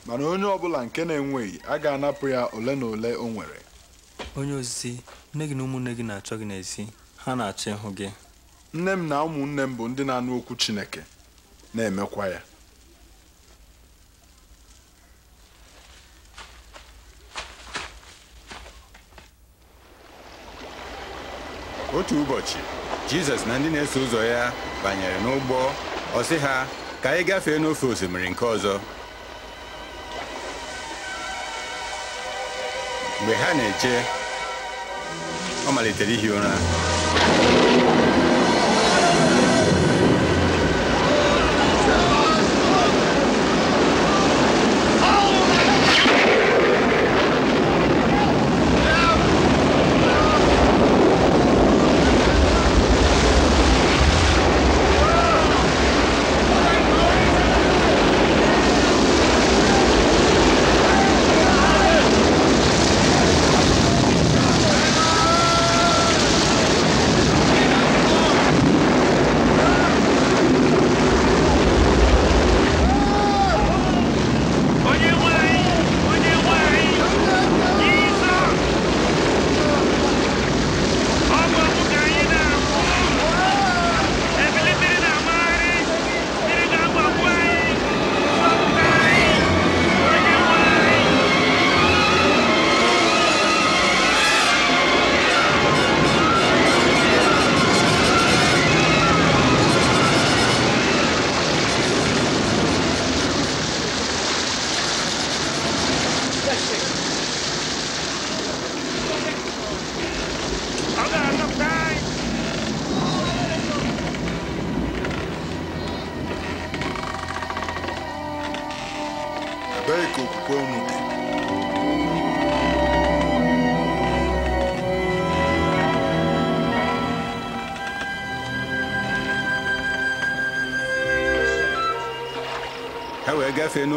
mana onye ọbụla nke na-enweghị a ga-anapụ ya ole na ole o nwere onye ozizi nne gị na ụmụnne gị na-achọ gị n'ezi ha na-achọ ịhụ gị nne m na ụmụnne m bụ ndị na-anụ okwu Chineke na-emekwa ya otu ụbọchị Jizọs na ndị na-eso ụzọ ya banyere n'ụgbọ ọ ha ka anyị gafee n'ofe osimiri nke ọzọ mgbe ha na-eche ọ malitere ihi ụra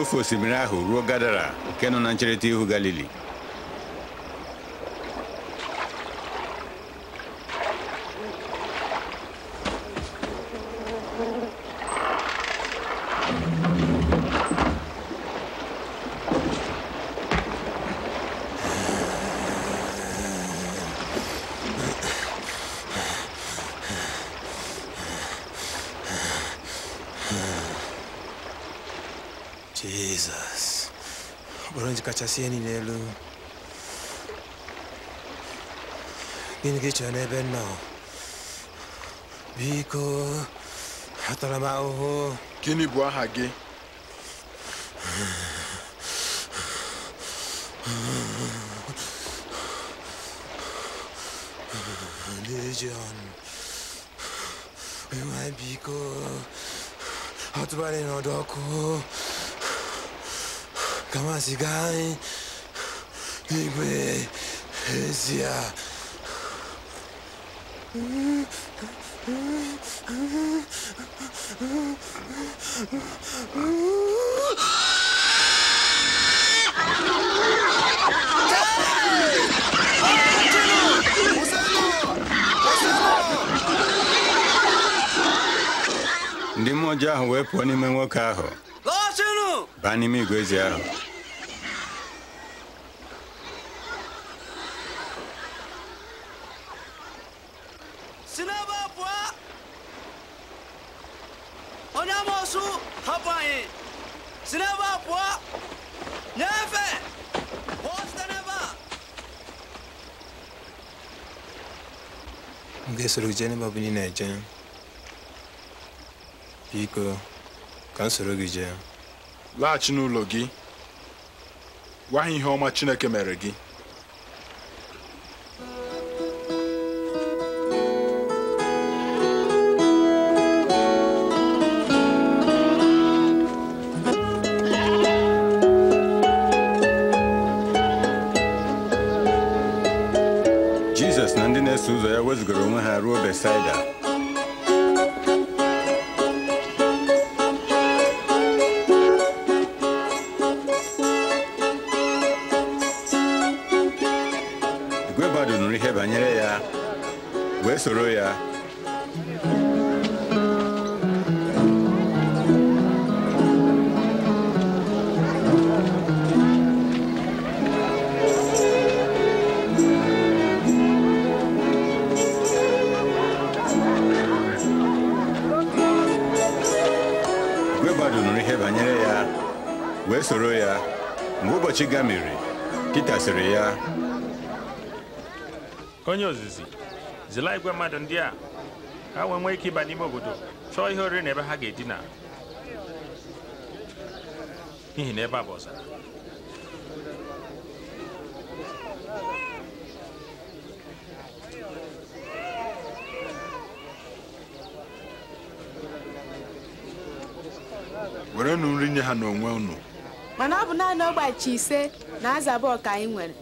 ofe osimiri ahụ ruo Gadara nke nọ na ncherịta ihu Galili seni nelu. Gingi chane benno. Biko. Atalama oho. Kini bua hage. Legion. We might be go. Hot running on kama sikai nigwe ndị mmụọ ji ahụ wee pụọ n'ime nwoke ahụ baa n'ime igwe ahụ soro gị jee n'ebe na-eje biko ka m soro gị jee laghachi n'ụlọ gị gwa ha ihe ọma Chineke mere gị masịrị ya onye ozizi zila igwe mmadụ ndị a ha wee nwee ike ịba n'ime obodo chọọ ihe oriri na ebe ha ga-edina n'ihi na ebe a bụ ọzara werenụ nri nye ha n'onwe unu mana ọ bụ naanị ọgbachi ise na azaba ọka anyị nwere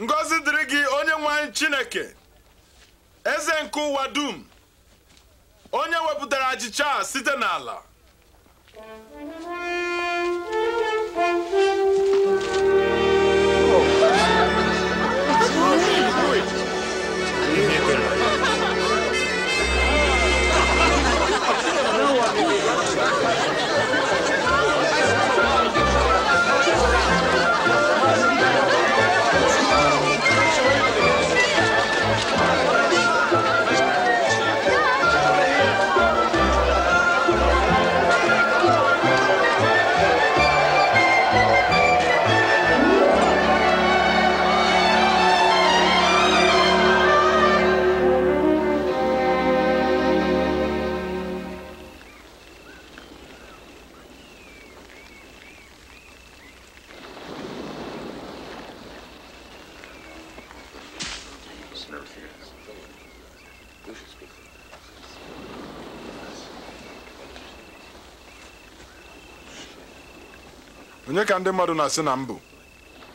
Ngozi dịrị gị onye nwanyị chineke eze nke ụwa dum onye wepụtara achịcha site n'ala ka ndị mmadụ na-asị na mbụ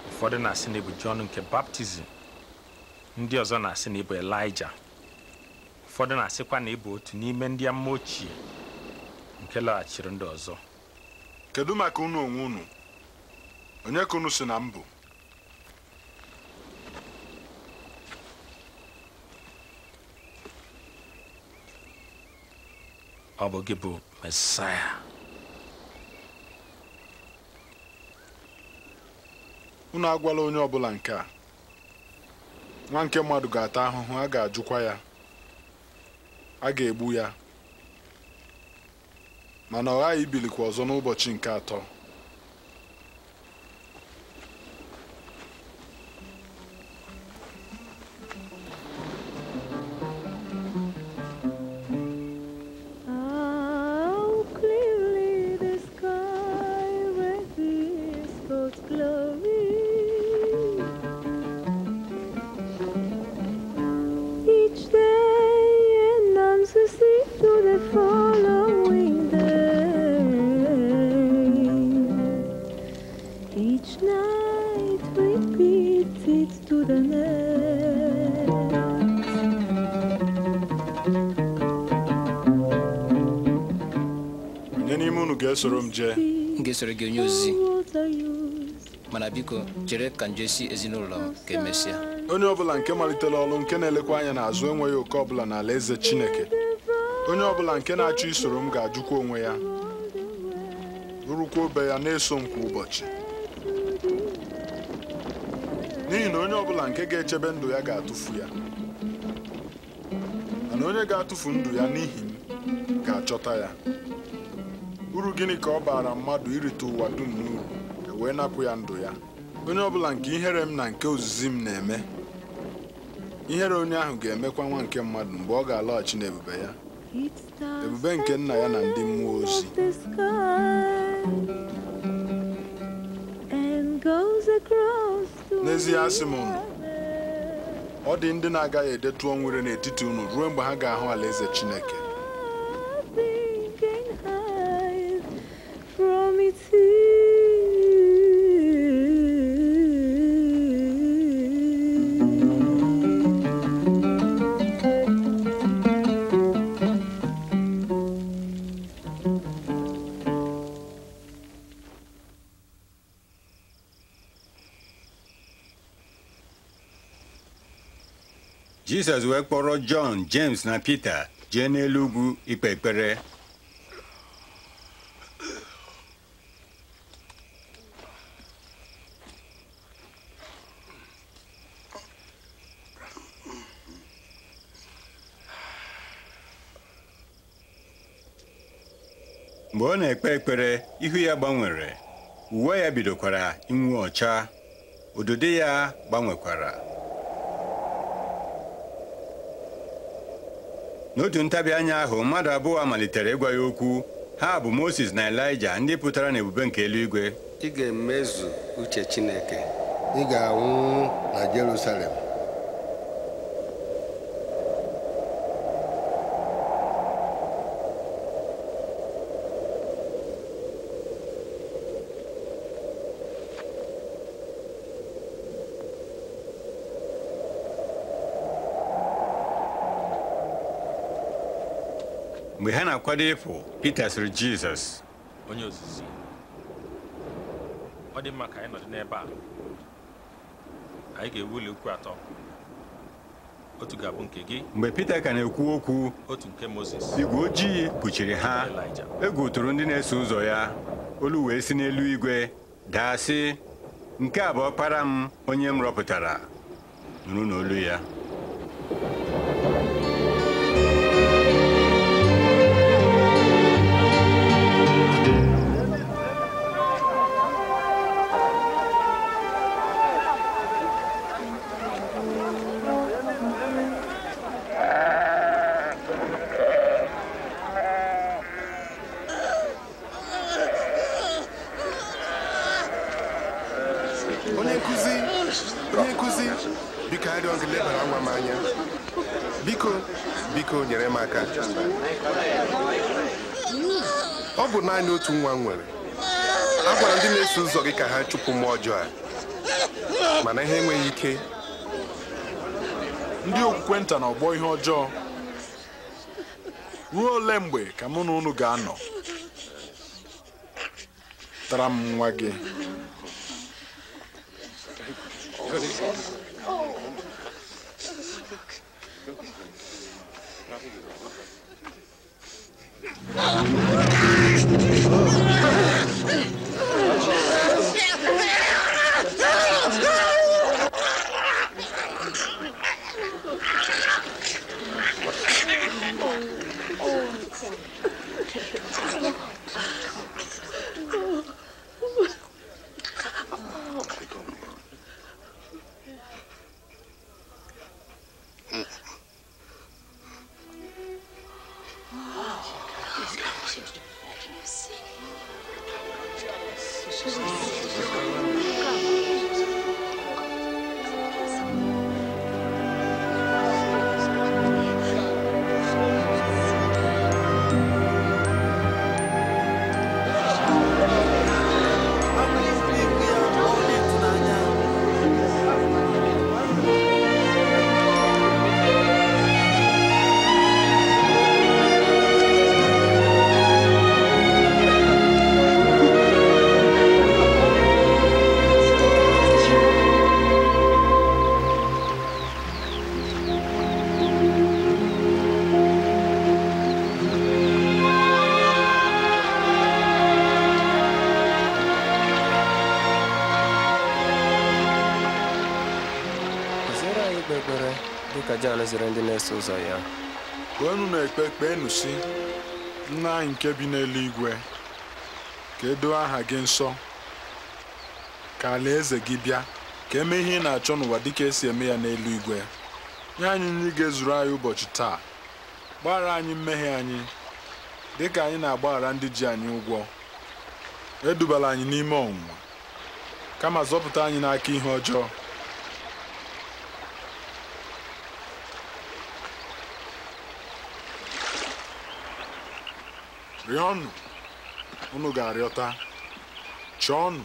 ụfọdụ na-asị na ịbụ Jọn nke baptizim ndị ọzọ na-asị na ịbụ Elija ụfọdụ na-asịkwa na ịbụ otu n'ime ndị ama ochie nke laghachiri ndị ọzọ kedu maka unu onwe unu onye ka unu si na mbụ ọ bụ gị bụ mesaya unu agwala onye ọbụla nke a nwa nke mmadụ ga-ata ahụhụ a ga-ajụkwa ya a ga-egbu ya mana ọ ghaghị ibilikwa ọzọ n'ụbọchị nke atọ soro m jee m ga-esoro gị onye ozizi mana biko chere ka m si ezinụlọ m ka emesịa onye ọbụla nke malitela ọrụ nke na-elekwa anya n'azụ enweghị oke ọbụla ala eze Chineke onye ọbụla nke na-achọ isoro m ga-ajụkwa onwe ya rụrụkwa obe ya na-eso m kwa ụbọchị n'ihi na onye ọbụla nke ga-echebe ndụ ya ga-atụfu ya mana onye ga-atụfu ndụ ya n'ihi m ga-achọta ya uru gịnị ka ọ baara mmadụ irite ụwa dum n'uru e wee napụ ya ndụ ya onye ọbụla nke ihere m na nke ozizi m na-eme ihere onye ahụ ga-emekwa nwa nke mmadụ mgbe ọ ga-alọghachi n'ebube ya ebube nke nna ya na ndị mmụọ ozi n'ezie asị m unu ọ dị ndị na-agaghị edetu ọnwụ n'etiti unu ruo mgbe ha ga-ahụ alaeze Chineke Jizọs wee kpọrọ Jọn James na Pita jee n'elu ugwu ikpe ekpere mgbe ọ na-ekpe ekpere ihu ya gbanwere uwe ya bidokwara inwe ọcha ododo ya gbanwekwara n'otu ntabi anya ahụ mmadụ abụọ malitere ịgwa ya okwu ha bụ Moses na Elija ndị pụtara n'ebube nke eluigwe ị ga-emezu uche Chineke ị ga-anwụ na Jerusalem mgbe ha na-akwado ịpụ Pita sịrị Jizọs onye ozizi ọ dị mma ka anyị nọdụ n'ebe a anyị ga ukwu atọ otu ga-abụ nke gị mgbe Pita ka na-ekwu okwu otu nke Mozis igwe ojii kpuchiri ha egwu tụrụ ndị na-eso ụzọ ya olu wee si n'elu igwe daa sị nke a bụ ọkpara m onye m rọpụtara nụrụ n'olu ya chụpụ mmụọ ọjọọ a mana ihe enweghị ike ndị okwukwe nta na ọgbọ ihe ọjọọ ruo ole mgbe ka mụ na unu ga-anọ tara m nwa gị ụzọ ya na-ekpe kpeenụ si nna anyị nke bi n'eluigwe ka edoo aha gị nsọ ka alaeze gị bịa ka emee ihe ị na-achọ n'ụwa dịka esi eme ya n'eluigwe nye anyị nri ga-ezuru anyị ụbọchị taa gbaghara anyị mmehie anyị dịka anyị na-agbaghara ndị ji anyị ụgwọ edubala anyị n'ime ọnwụnwa kama zọpụta anyị n'aka ihe ọjọọ rịọnụ unu ga-arịọta chọọnụ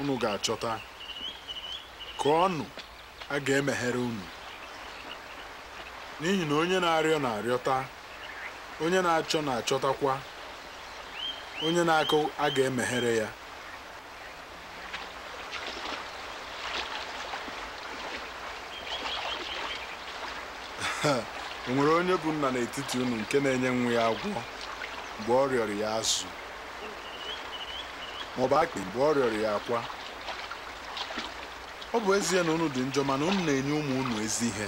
unu ga-achọta kụọnụ a ga-emeghere unu n'ihi na onye na-arịọ na-arịọta onye na-achọ na-achọtakwa onye na-akụ a ga-emeghere ya o nwere onye bụ nna n'etiti unu nke na-enye nwa ya agwọ mgbe ọ rịọrọ ya azụ maọbụ akpị mgbe ọ rịọrọ ya akwa ọ bụ ezie na unu dị njọ mana unu na-enye ụmụ unu ezi ihe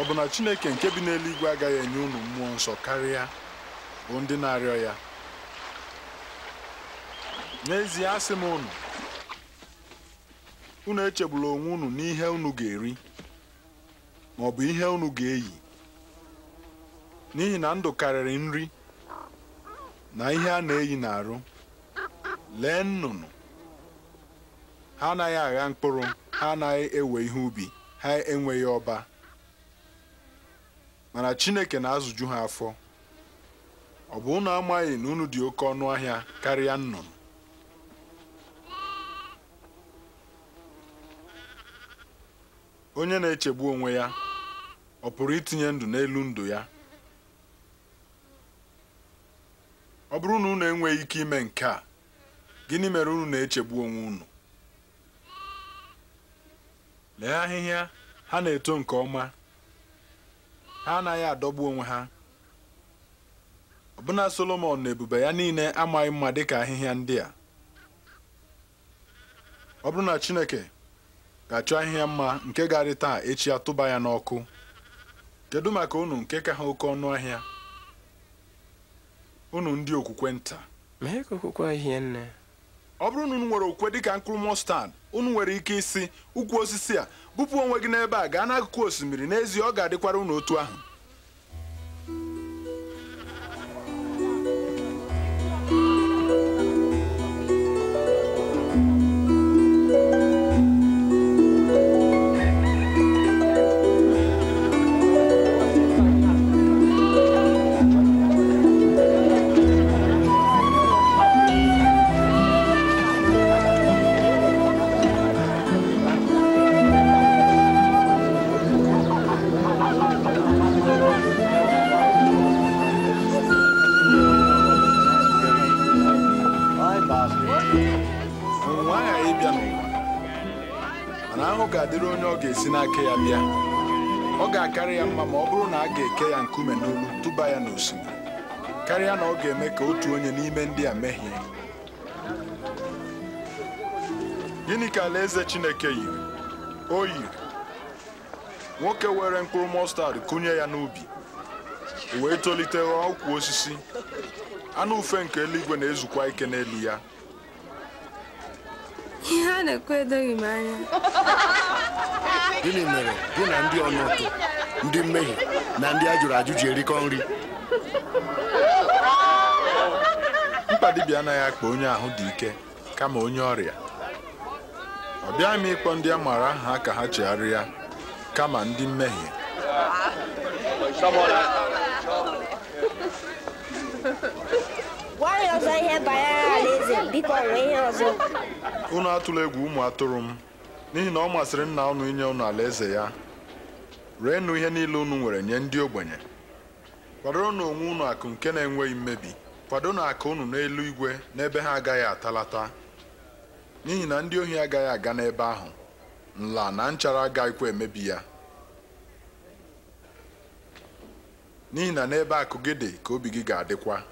ọ bụ na Chineke nke bi n'eluigwe agaghị enye unu mmụọ nsọ karịa bụ ndị na-arịọ ya n'ezie asị m unu unu echegbula onwe unu n'ihe unu ga-eri maọbụ ihe unu ga-eyi n'ihi na ndụ karịrị nri na ihe a na-eyi n'arụ lee nnụnụ ha anaghị agha mkpụrụ ha anaghị ewe ihe ubi ha enweghị ọba mana Chineke na-azụju ha afọ ọ bụ ụnụ amaghị na unu dị oke ọnụ ahịa karịa nnụnụ onye na-echegbu onwe ya ọ pụrụ itinye ndụ n'elu ndụ ya ọ bụrụ na unu enweghị ike ime nke a gịnị mere unu na-echegbu onwe unu lee ahịhịa ha na-eto nke ọma ha anaghị adọgbu onwe ha ọbụna Solomọn na ebube ya niile amaghị mma dịka ahịhịa ndị a ọ bụrụ na Chineke ga-achọ ahịhịa mma nke garị taa echi atụba ya n'ọkụ kedu maka unu nke ka ha oke ọnụ ahịa unu ndị okwukwe nta mee okwukwe ahịhịa nne ọ bụrụ na unu nwere okwukwe dịka mkpụrụ mọstad unu nwere ike isi ukwu osisi a bupụ onwe gị n'ebe a gaa n'akụkụ osimiri n'ezie ọ ga-adịkwara unu otu ahụ karịa na ọ ga-eme ka otu onye n'ime ndị a mehie gịnị ka eze Chineke yiri o yiri nwoke were mkpụrụ mọstad kụnye ya n'ubi wee tolite ghọọ osisi anụ ufe nke eluigwe na-ezukwa ike n'elu ya ihe a na-ekwu edoghị m anya gịnị mere gị na ndị ọnụtụ ndị mmehie na ndị a jụrụ ajụ erikọ nri mpa dibịa anaghị akpa onye ahụ dị ike kama onye ọrịa ọ bịaghị m ịkpọ ndị a maara aha ka ha chegharịa kama ndị mmehie gwa ya ọzọ ihe banyere alaeze biko ihe ọzọ unu atụla egwu ụmụ atụrụ m n'ihi na ọ masịrị nna unu inye unu alaeze ya reenụ ihe niile unu nwere nye ndị ogbenye kwadoro na onwe unu akụ nke na-enweghị mmebi kwado na akụ unu n'elu igwe n'ebe ha agaghị atalata n'ihi na ndị ohi agaghị aga n'ebe ahụ nla na nchara agaghịkwa emebi ya n'ihi na n'ebe akụ gị dị ka obi gị ga-adịkwa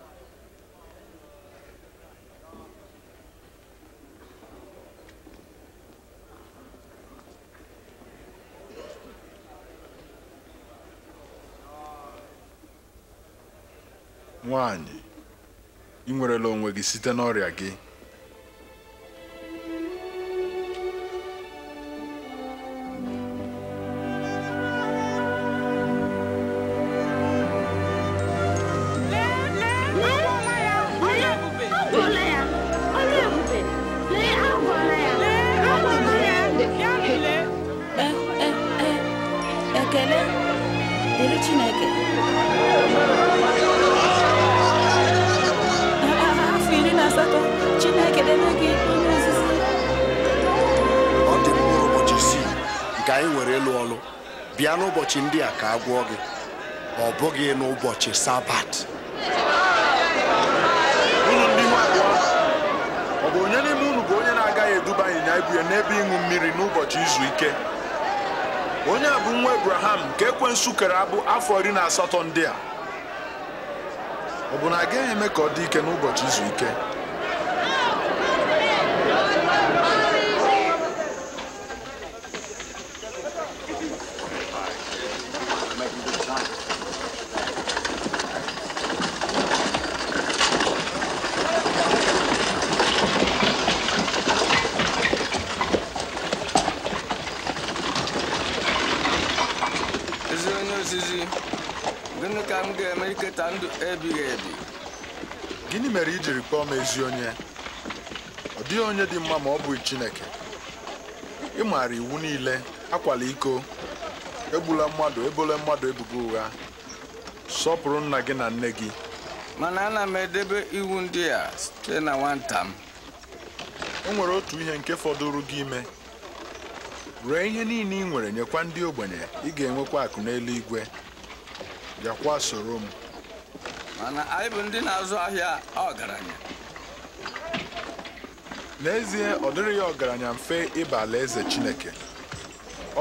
nwanyị ị nwerela onwe gị site n'ọrịa gị agwọ gị ọ bụghị n'ụbọchị sabat ndị ọ bụ onye n'ime unu bụ onye na-agaghị eduba ịnyịnya ibu ya n'ebe ịṅụ mmiri n'ụbọchị izu ike onye a bụ nwa ebraham nke ekwensu kere abụ afọ iri na asatọ ndị a ọ bụ na agaghị eme ka ọ dị ike n'ụbọchị izu ike ebighị ebi gịnị mere i jiri kpọọ m ezi onye ọ dịghị onye dị mma ma ọ bụghị Chineke ị maara iwu niile akwala iko egbula mmadụ ebola mmadụ ebubo ụgha sọpụrụ nna gị na nne gị mana ana m edebe iwu ndị a site na nwata m e nwere otu ihe nke fọdụrụ gị ime ree ihe niile ị nwere nyekwa ndị ogbenye ị ga-enwekwa akụ n'eluigwe bịakwa soro m mana anyị bụ ndị na-azụ ahịa ọgaranya n'ezie ọ dịrị ya ọgaranya mfe ịba alaeze Chineke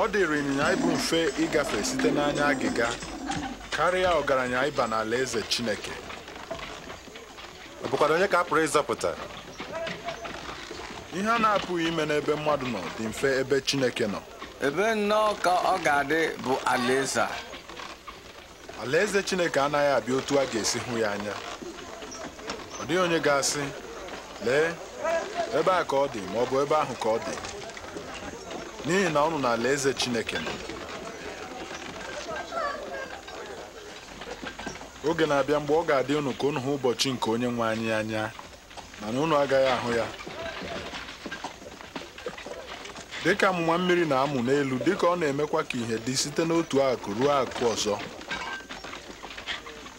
ọ dịrị ịnyịnya ịbụ mfe ịgafe site n'anya agịga karịa ọgaranya ịba Alaeze Chineke ọ bụkwara onye ka a pụrụ ịzọpụta ihe a na-apụghị ime n'ebe mmadụ nọ dị mfe ebe Chineke nọ ebe nnọọ ka ọ ga-adị bụ alaeze a alaeze chineke anaghị abịa otu a ga-esi hụ ya anya ọ dịghị onye ga-asị lee ebe a ka ọ dị ma ọ bụ ebe ahụ ka ọ dị n'ihi na ọnụ na alaeze chineke nọ oge na-abịa mgbe ọ ga-adị unu ka unu hụ ụbọchị nke onye nwe anyị anya mana unu agaghị ahụ ya dịka amụma mmiri na-amụ n'elu dịka ọ na-emekwa ka ihe dị site n'otu akụ ruo akụ ọzọ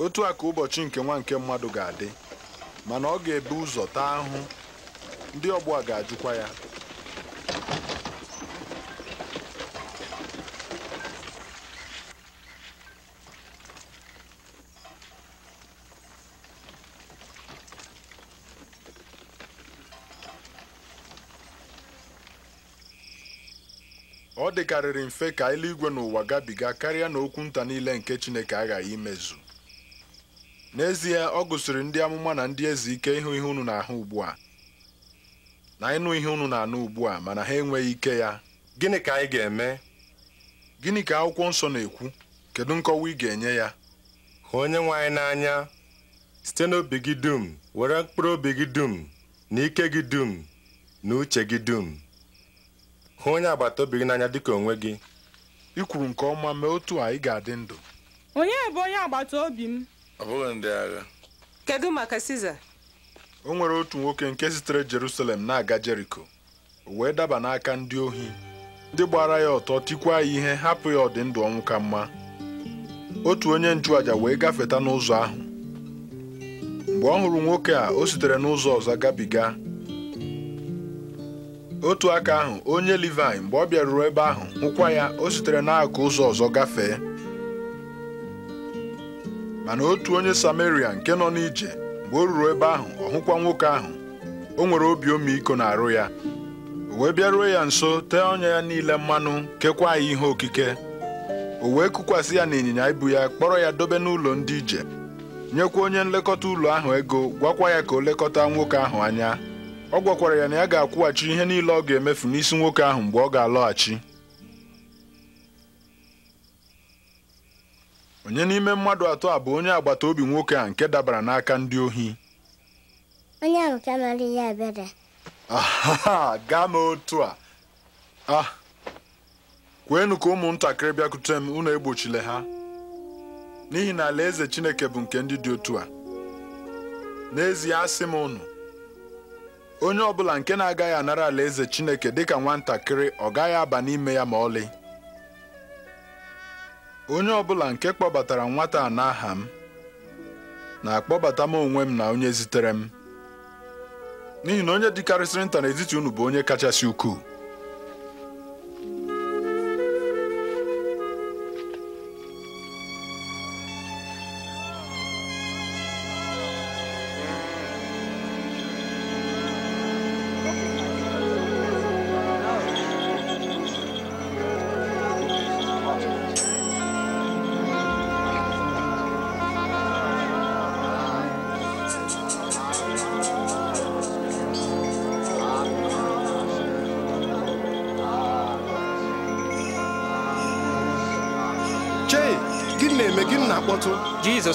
otu a ụbọchị nke nwa nke mmadụ ga-adị mana ọ ga-ebu ụzọ taa ahụ ndị ọgbọ a ga-ajụkwa ya ọ dịkarịrị mfe ka eluigwe n'ụwa gabiga karịa na okwu niile nke Chineke aghaghị imezu n'ezie ọ gụsịrị ndị amụma na ndị eze ike ịhụ ihe unu na-ahụ ugbu a na ịnụ ihe unu na-anụ ugbu a mana ha enweghị ike ya gịnị ka anyị ga-eme gịnị ka akwụkwọ nsọ na-ekwu kedu nkọwa ị ga-enye ya hụ onye nwe anyị n'anya site n'obi gị dum were mkpụrụ obi gị dum na ike gị dum na uche gị dum hụ onye agbata obi gị n'anya ka onwe gị ị kwuru nke ọma mee otu a ị ga-adị ndụ onye bụ onye agbata obi m ọ bụghị ndị agha kedu maka Siza o nwere otu nwoke nke sitere Jerusalem na-aga Jeriko o wee daba n'aka ndị ohi ndị gbara ya ọtọ tikwa ya ihe hapụ ya ọdị ndụ ọnwụ ka mma otu onye nchụaja wee gafeta n'ụzọ ahụ mgbe ọ hụrụ nwoke a o sitere n'ụzọ ọzọ gabiga otu aka ahụ onye Livaị mgbe ọ bịaruru ebe ahụ hụkwa ya o sitere n'akụ ụzọ ọzọ gafee mana otu onye samaria nke nọ n'ije mgbe o ruru ebe ahụ ọ hụkwa nwoke ahụ o nwere obi ọmịiko na-arụ ya o wee bịaruo ya nso tee ọnya ya niile mmanụ kekwa ya ihe okike o wee kụkwasị ya n'ịnyịnya ibu ya kpọrọ ya dobe n'ụlọ ndị ije nyekwa onye nlekọta ụlọ ahụ ego gwakwa ya ka o lekọta nwoke ahụ anya ọ gwakwara ya na ya ga-akwụghachi ihe niile ọ ga-emefu n'isi nwoke ahụ mgbe ọ ga-alọghachi onye n'ime mmadụ atọ a bụ onye agbata obi nwoke a nke dabara n'aka ndị ohi onye ahụ ka mara ihe ebere gaa m otu a a ah, kweenu ka ụmụntakịrị bịakute m unu egbochile ha n'ihi na alaeze Chineke bụ nke ndị dị otu a n'ezie asị m unu onye ọbụla nke na-agaghị anara alaeze Chineke dịka nwatakịrị ọ gaghị aba n'ime ya ma ọlị onye ọbụla nke kpọbatara nwata a n'aha m na-akpọbata m onwe m na onye zitere m n'ihi na onye dịkarịsịrị nta n'etiti unu bụ onye kachasị ukwuu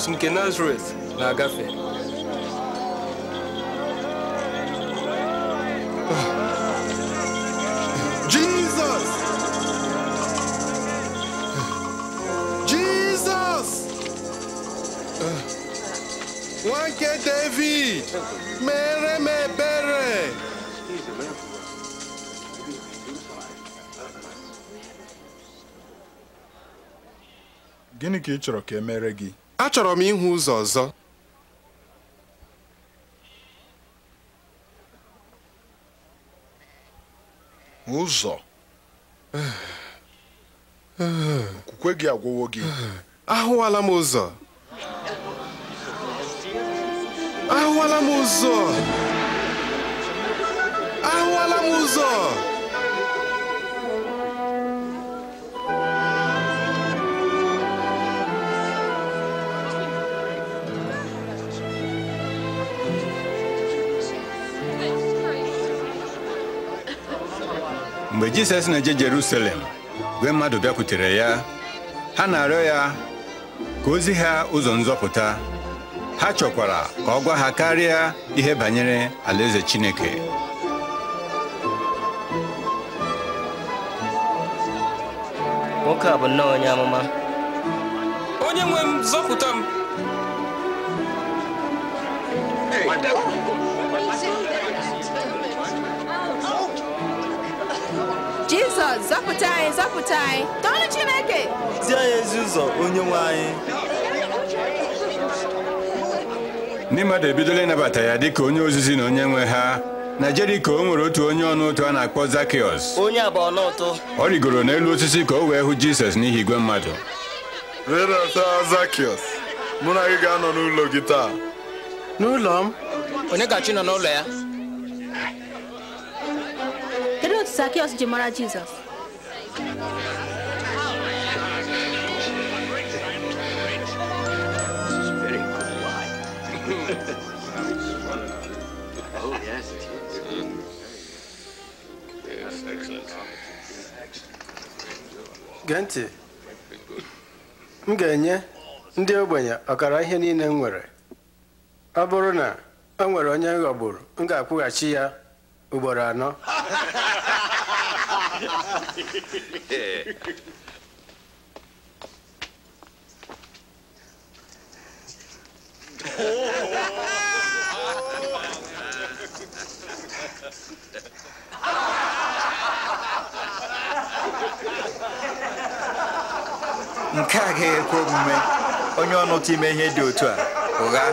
Ah. Jesus, nke Nazaret na-agafe Jizọs Jizọs nwa nke David mere m ebere gịnị ka ị chọrọ ka e mere gị achọrọ m ịhụ ụzọ ọzọ ụzọ okwukwe gị agwụwo gị ahụwala m ụzọ ahụwala m ụzọ ahụwala m jizọs na-eje jerusalem gwe mmadụ bịakwutere ya ha na-arịọ ya ka ozi ha ụzọ nzọpụta ha chọkwara ka ọ gwa ha karịa ihe banyere alaeze chineke nwoke a bụ nnọọ onye amụma ga-azọpụta anyị tọọnụ Chineke zie ya ezi ụzọ onye nwe anyị ndị mmadụ ebidola ịnabata ya dị ka onye ozizi na onye nwe ha na Jeriko o nwere otu onye ọnụ ụtọ a na-akpọ zakios. onye abụọ n'ụtụ ọ rigoro n'elu osisi ka o wee hụ Jizọs n'ihi igwe mmadụ rịdata Zakiọs mụ na gị ga-anọ n'ụlọ gị taa n'ụlọ m onye gachi nọ n'ụlọ ya kedu otu Zakios ji mara Jizọs gee ntị m ga-enye ndị ogbenye ọkara ihe niile m nwere ọ bụrụ na o nwere onye ghọgburu m ga-akwụghachi ya ugboro anọ nke a ga ekwe omume onye ọnụtụ ime ihe dị otu a ụgha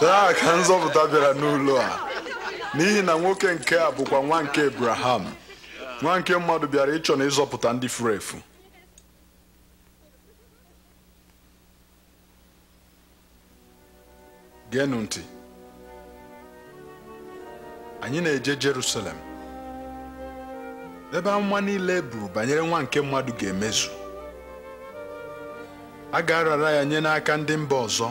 taa ka nzọpụta bịara n'ụlọ a n'ihi na nwoke nke a bụkwa nwa nke Abraham nwa nke mmadụ bịara ịchọ na ịzọpụta ndị furu efu geenụ anyị na-eje Jerusalem ebe amụma niile e buru banyere nwa nke mmadụ ga-emezu a ga-arara ya nye n'aka ndị mba ọzọ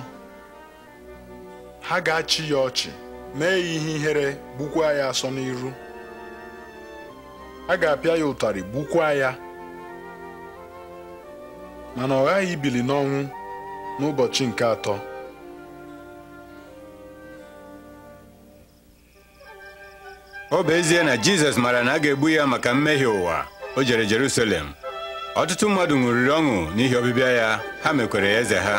ha ga-achị ya ọchị mee ya ihe ihere gbukwaa ya asọ n'iru a ga-apịa ya ụtarị gbukwaa ya mana ọ ghaghị ibili n'ọnwụ n'ụbọchị nke atọ ọ bụ ezie na Jizọs mara na a ga-egbu ya maka mmehie ụwa o jere Jerusalem ọtụtụ mmadụ ṅụrịrị ọṅụ n'ihi ọbịbịa ya ha mekwere ya eze ha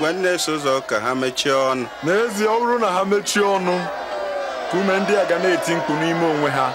gwa ndị na-eso ụzọ ka ha mechie ọnụ n'ezie ọ bụrụ na ha mechie ọnụ ka ume ndị a ga na-eti mkpu n'ime onwe ha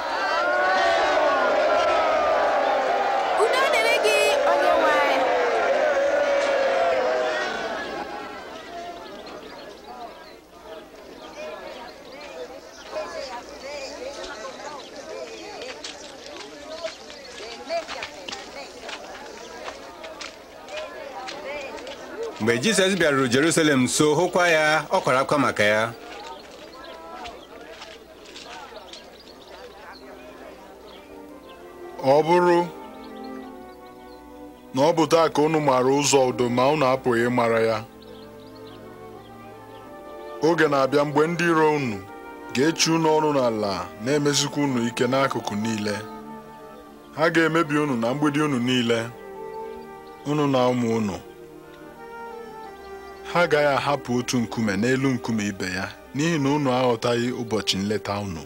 mgbe jizọs bịaruru jerusalem so hụkwa ya ọ kwara akwa maka ya ọ bụrụ na ọ bụ taa ka unu maara ụzọ udo ma unu apụghị ịmara ya oge na-abịa mgbe ndị iro unu ga-echi unu ọrụ n'ala na-emezikwa unu ike n'akụkụ niile ha ga-emebi unu na mgbidi unu niile unu na ụmụ unu ha agaghị ahapụ otu nkume n'elu nkume ibe ya n'ihi na unu aghọtaghị ụbọchị nleta unu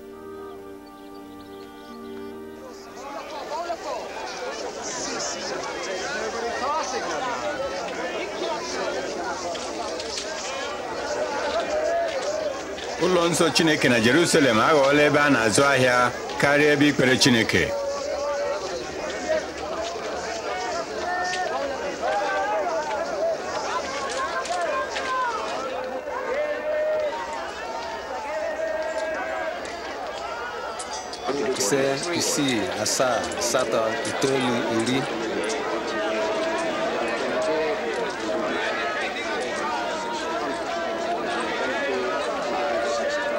ụlọ nsọ Chineke na Jerusalem aghọọla ebe a na-azụ ahịa karịa ebe ikpere Chineke asaa asatọ itoolu iri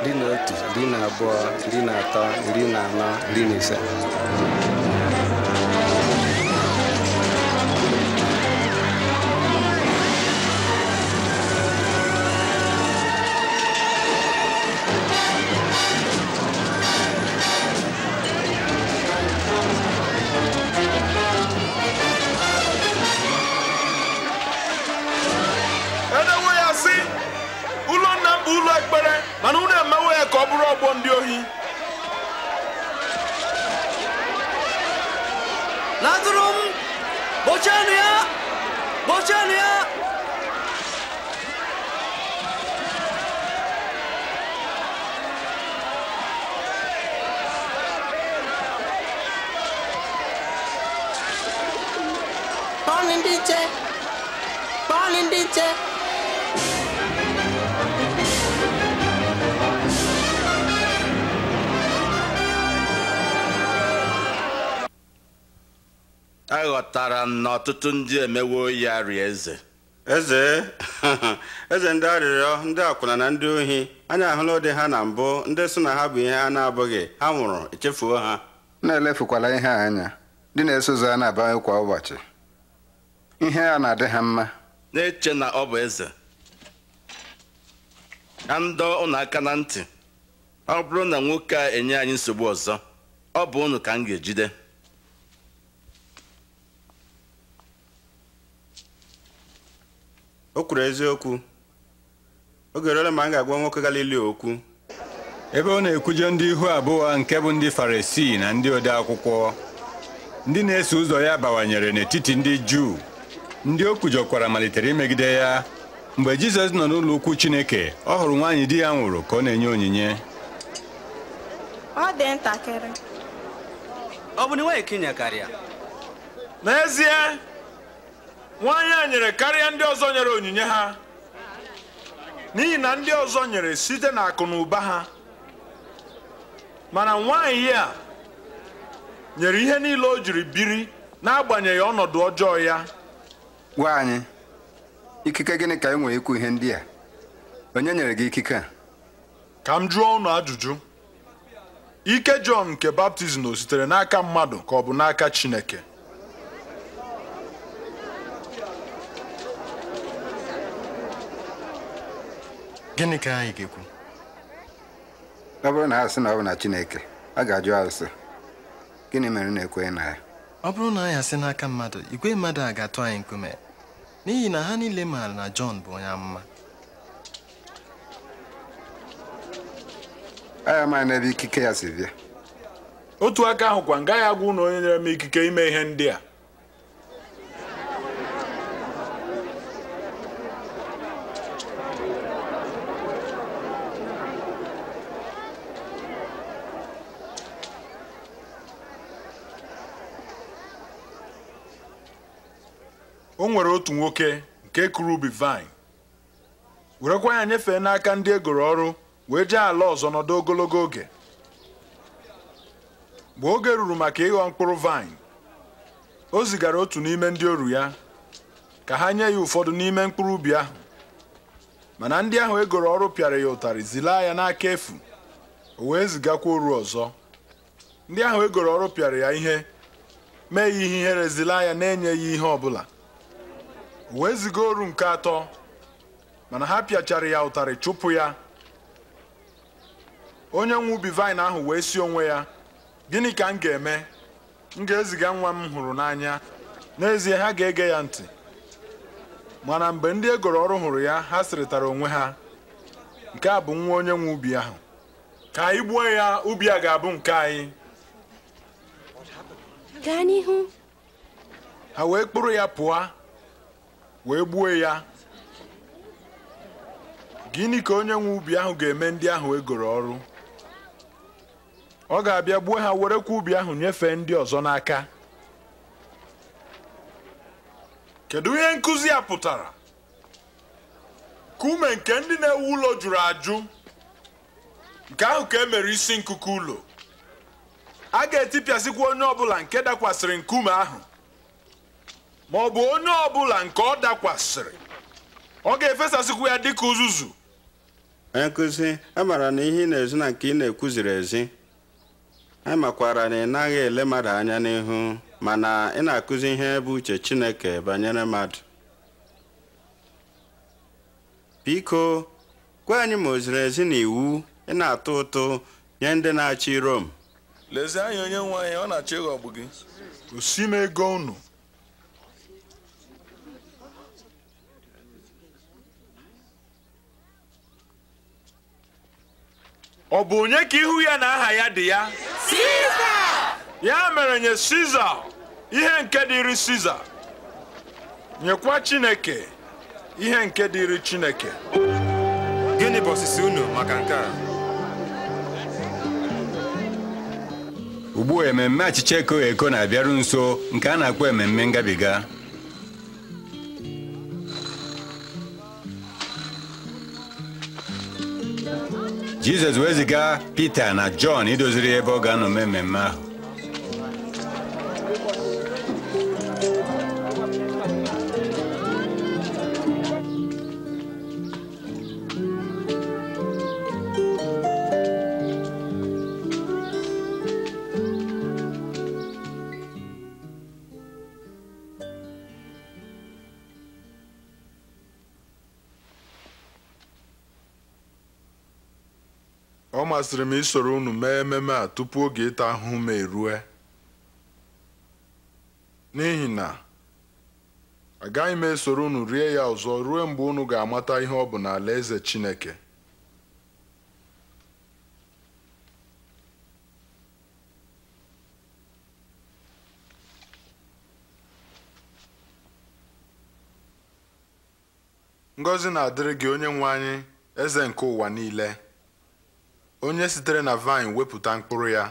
iri na otu iri na abụọ iri na atọ iri na anọ iri na ise na ọtụtụ ndị emewo ya rie eze eze eze ndị arịrịọ ndị akwụna na ndị ohi anya ahụla ụdị ha na mbụ ndị so na ha bụ ihe a na-abụghị ha nwụrụ echefuo ha na-elefukwala ihe anya ndị na-eso ụzọ a na-abawanye kwa ụbọchị ihe a na-adị ha mma na-eche na ọ bụ eze ka ndọ ụnụ aka na ntị ọ bụrụ na nwoke a enye anyị nsogbu ọzọ ọ bụ ụnụ ka m ga-ejide o kwuru eziokwu oge eruola ma m ga-agwa nwoke galili okwu ebe ọ na ekwuje ndị ihu abụọ nke bụ ndị farisi na ndị ode akwụkwọ ndị na-eso ụzọ ya bawanyere n'etiti ndị juu ndị o kwujọkwara malitere imegide ya mgbe jizọs nọ n'ụlọ ukwu chineke ọ hụrụ nwaanyị di ya nwụrụ ka ọ na-enye onyinye ọ bụ na karịa n'ezie nwaanyị a nyere karịa ndị ọzọ nyere onyinye ha n'ihi na ndị ọzọ nyere site na akụ na ụba ha mana nwaanyị a nyere ihe niile o jiri biri n'agbanyeghị ọnọdụ ọjọọ ya Nwaanyị, ikike gịnị ka e nwere ikwu ihe ndị a onye nyere gị ikike a ka m jụọ ụnụ ajụjụ ike Jọn nke baptizim o sitere n'aka mmadụ ka ọ bụ n'aka Chineke gịnị ka anyị ga-ekwu ọ bụrụ na ha sị na ọ bụ na Chineke a ga-ajụ arụsị gịnị mere na-ekweghị na ya ọ bụrụ na anyị asị n'aka mmadụ igwe mmadụ a ga-atụ anyị nkume n'ihi na ha niile maara na Jọn bụ onye amụma anyị amaghị n'ebe ikike ya si bịa otu aka ahụ m gaghị agwa ụnụ onye nyere m ikike ime ihe ndị a o nwere otu nwoke nke kụrụ ubi vine werekwa ya nyefee n'aka ndị egoro ọrụ wee jee ala ọzọ nọdụ ogologo oge mgbe oge ruru maka ịghọ mkpụrụ vine o zigara otu n'ime ndị oru ya ka ha nye ya ụfọdụ n'ime mkpụrụ ubi ahụ mana ndị ahụ egoro ọrụ pịara ya ụtarị zilaa ya n'aka efu o wee zigakwa oru ọzọ ndị ahụ egoro ọrụ pịara ya ihe mee ya ihe ihere zilaa ya na-enyeghị ihe ọ bụla wee ziga oru nke atọ mana ha pịachara ya ụtarị chụpụ ya onye nwe ubi vaịn ahụ wee si onwe ya gịnị ka m ga-eme m ga-eziga nwa m hụrụ n'anya n'ezie ha ga-ege ya ntị mana mgbe ndị egoro ọrụ hụrụ ya ha sịrịtara onwe ha nke a bụ nwa onye nwe ubi ahụ ka anyị gbuo ya ubi a ga-abụ nke anyị gaa n'ihu ha wee kpụrụ ya pụọ wee gbuo ya gịnị ka onye nwe ubi ahụ ga-eme ndị ahụ egoro ọrụ ọ ga-abịa gbuo ha werekwa ubi ahụ nyefee ndị ọzọ n'aka kedu ihe nkụzi a pụtara kume nke ndị na-ewu ụlọ jụrụ ajụ nke ahụ ka e mere isi nkuku ụlọ a ga-etipịasịkwa onye ọbụla nke dakwasịrị nkume ahụ ma ọ bụ onye ọbụla nke ọ dakwasịrị ọ ga-efesasịkwu ya dịka uzuzu nkụzi e amara na ihe ị na-ezi na nke ị na-ekwuziri ezi amakwara e na ị naghị ele mmadụ anya n'ihu mana ị na-akụzi ihe bụ uche Chineke banyere mmadụ biko gwa anyị ma o ziri ezi na iwu ị na-atụ ụtụ nye ndị na-achị Rom lezie anya onye nwe anyị ọ na-achọ ịghọgbu gị gosi m ego unu ọ bụ onye ka ihu ya na aha ya dị ya ya mere nye siza ihe nke dịrị siza nyekwa chineke ihe nke dịrị chineke gịnị bụ osisi unu maka nke a ugbu a ememme achịcha eko eko na-abịaru nso nke a na-akpọ ememme ngabiga jizọs wee ziga pita na jọn idoziri ebe ọ ga-anọ mmemme ahụ masịrị m isoro unu mee ememe a tupu oge ịta ahụhụ m erue n'ihi na agaghị m esoro unu rie ya ọzọ ruo mgbe unu ga-amata ihe ọ bụ n'ala eze Chineke ngọzi na-adịrị gị onye nwe anyị eze nke ụwa niile onye sitere na vine wepụta mkpụrụ ya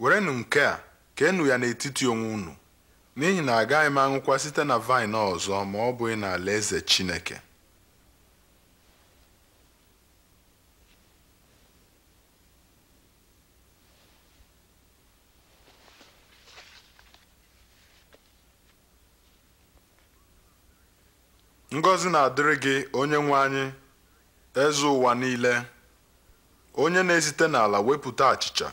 werenụ nke a ka keenụ ya n'etiti onwe unu n'ihi na agaghị m anwụkwa site na vine ọzọ ma ọ bụghị n'alaeze Chineke ngọzi na-adịrị gị onye nwe anyị eze ụwa niile onye na-esite n'ala wepụta achịcha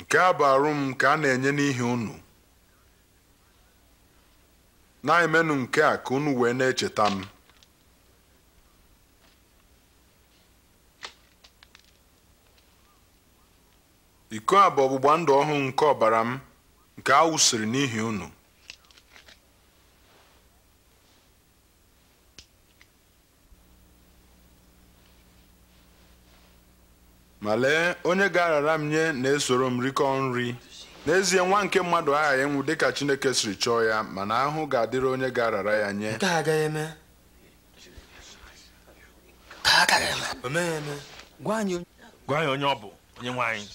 nke a bụ arụm m nke a na-enye n'ihi unu na-emenụ nke a ka unu wee na-echeta m iko a bụ ọgbụgba ndụ ọhụụ nke ọbara m nke a wụsịrị n'ihi unu ma lee onye ga-arara m nye na-esoro m rikọọ nri n'ezie nwa nke mmadụ aghaghị ịnwụ dịka Chineke siri chọọ ya mana ahụ ga-adịrị onye ga-arara ya nye gwa anyị onye ọ bụ onye nwanyị.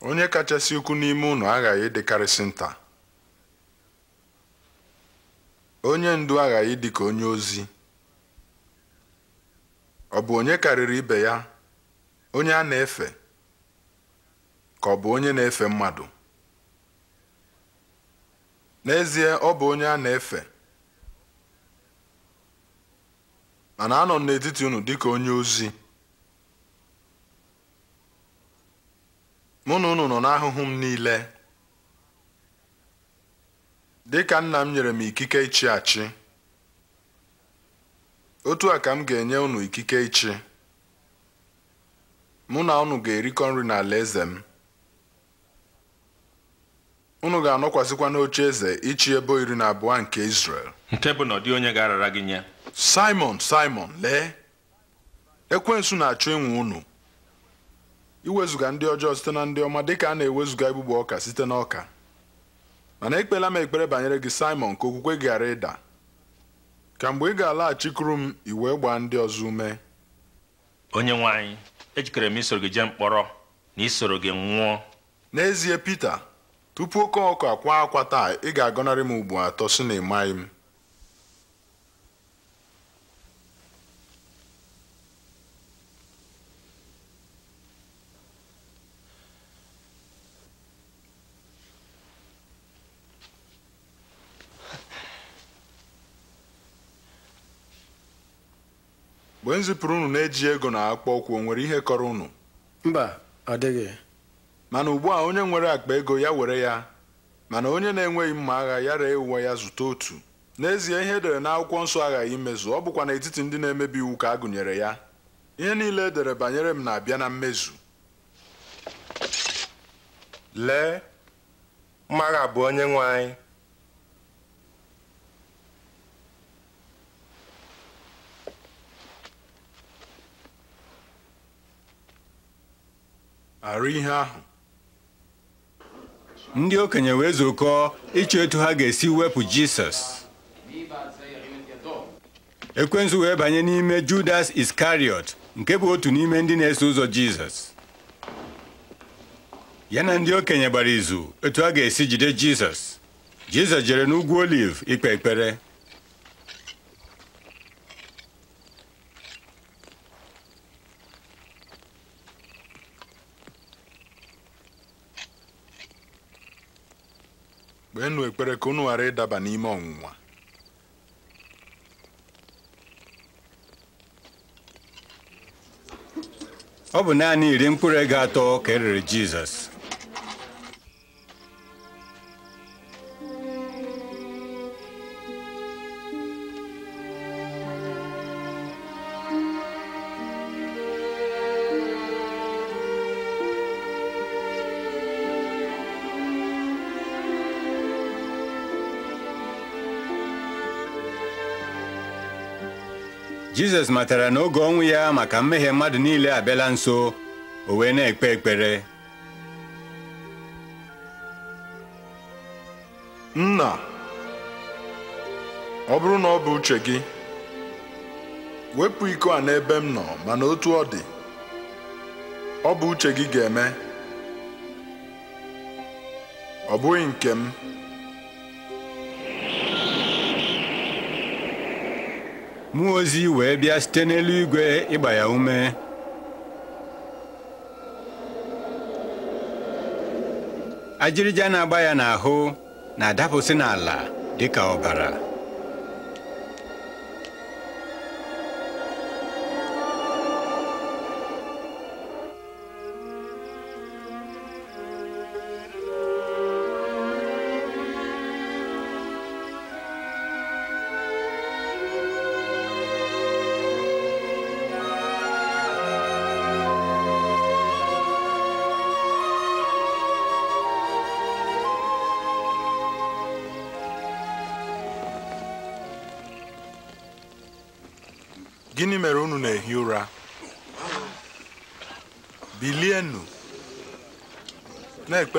onye kachasị ukwu n'ime ụnụ aghaghị ịdịkarịsị nta onye ndu aghaghị dị ka onye ozi ọ bụ onye karịrị ibe ya onye a na-efe ka ọ bụ onye na-efe mmadụ n'ezie ọ bụ onye a na-efe mana anọ m n'etiti ụnụ dị ka onye ozi mụ na unu nọ n'ahụhụ m niile dịka nna m nyere m ikike ịchị achị otu a ka m ga-enye unu ikike ịchị mụ na unu ga-erikọ nri n'ala eze m unu ga-anọkwasịkwa n'oche eze ịchị ebe iri na abụọ nke Israel nke bụ na dị onye ga-arara gị nye Simon Simon lee ekwensu na-achọ ịnwụ unu iwezuga ndị ọjọọ site na ndị ọma dịka a na-ewezuga igbugbu ọka site na ọka mana ekpela m ekpere banyere gị Simon ka okwukwe gị ịda ka mgbe ị ga-alaghachikuru m i wee gbaa ndị ọzọ ume onye nwe ejikere m isoro gị jee mkpọrọ na isoro gị nwụọ n'ezie pete tupu oke ọkụ akwa akwa taa ị ga-agọnarị m ugbo atọ si na ịmaghị m mgbe m zipụrụ unu na-eji ego na akpụkpọ ụkwụ o nwere ihe kọrọ unu mba ọ dịghị mana ugbu a onye nwere akpa ego ya were ya mana onye na-enweghị mma agha ya ree ụwa ya zụta otu n'ezie ihe edere n'akwụkwọ nsọ aghaghị imezu ọ bụkwa n'etiti ndị na-emebi iwu ka a gụnyere ya ihe niile edere banyere m na-abịa na mmezu lee mmaagha bụ onye nwe anyị ndị okenye wee zukọọ ịchọ etu ha ga-esi wepụ Jisọs ekwensu wee banye n'ime Judas Iskariot nke bụ otu n'ime ndị na-eso ụzọ Jizọs ya na ndị okenye gbara izu etu ha ga-esi jide Jizọs Jizọs jere n'ugwu Oliv ikpe ekpere kpeenụ ekpere ka unu ghara ịdaba n'ime ọnwụnwa ọ bụ naanị iri mkpụrụ ego atọ ka erere Jizọs jizọs matara na oge ọnwụ ya maka mmehie mmadụ niile abịala nso o wee na-ekpe ekpere nna ọ bụrụ na ọ bụ uche gị wepụ iko a n'ebe m nọ mana otu ọ dị ọ bụ uche gị ga-eme ọ bụghị nke m mmụọ ozi wee bịa site n'eluigwe ịgba ya ume ajịrịja na-agba ya n'ahụ na-adapụsị n'ala dị ka ọbara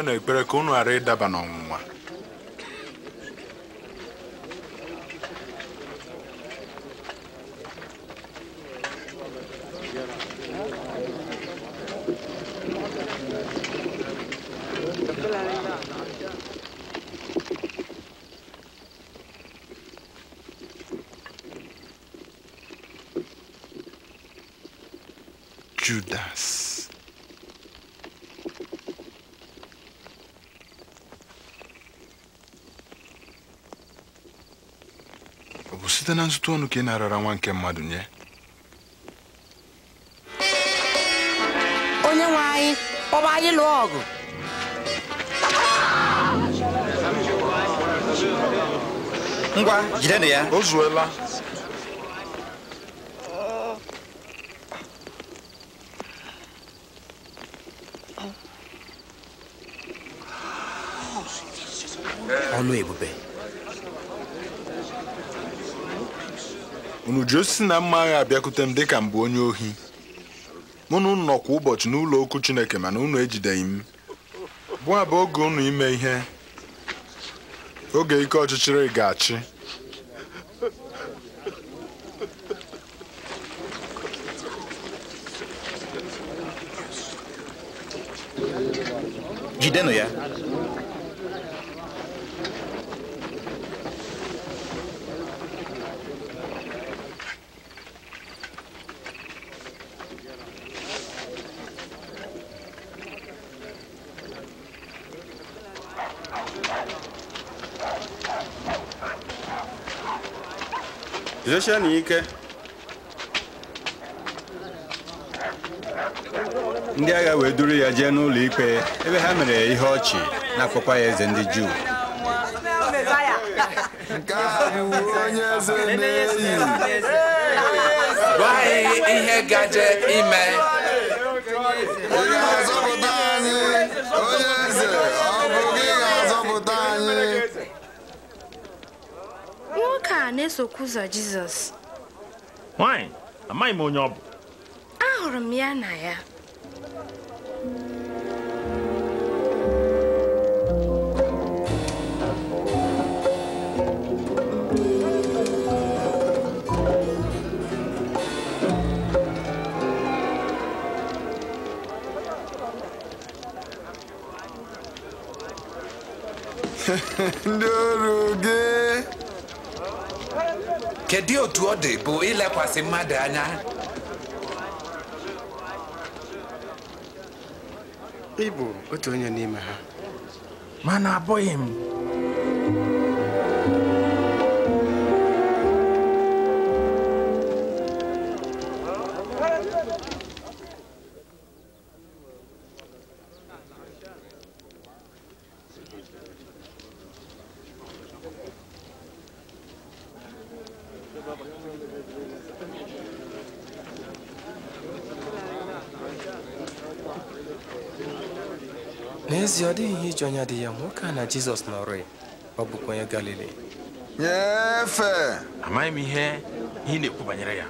na-ekpe na ekpere ka unu ịdaba n'ọnwụnwa ọtụtụ ọnụ ka ị narara nwa nke mmadụ nye onye nwe anyị kpọba anyị lụọ ọgụ ngwa ya o zuola ọlụ ebube unu ji osisi na mma agha abịakwute m dịka m bụ onye ohi mụ na unu nọ kwa ụbọchị n'ụlọ okwu Chineke mana unu ejideghị m bụ abụ oge unu ime ihe oge ike ọchịchịrị ga-achị jidenụ ya Guzosie n'ike ndị agha wee duru ya jee n'ụlọ ikpe ebe ha mere ihe ọchị na-akpọkwa ya eze ndị Juu ihe gaje ime onye anyị onye eze a na-esokwa ụzọ Jizọs nwaanyị amaghị m onye ọ bụ ahụrụ m ya na ya ndị ọrụ gị kedu otu ọ dị bụ ilekwasị mmadụ anya ị bụ otu onye n'ime ha mana abụghị m n'ezie ọ dịghị ihe iji anya dị ya nwoke a na jizọs nọrọ ya ọ bụkwa onye galili nyefe amaghị m ihe ị na-ekwu banyere ya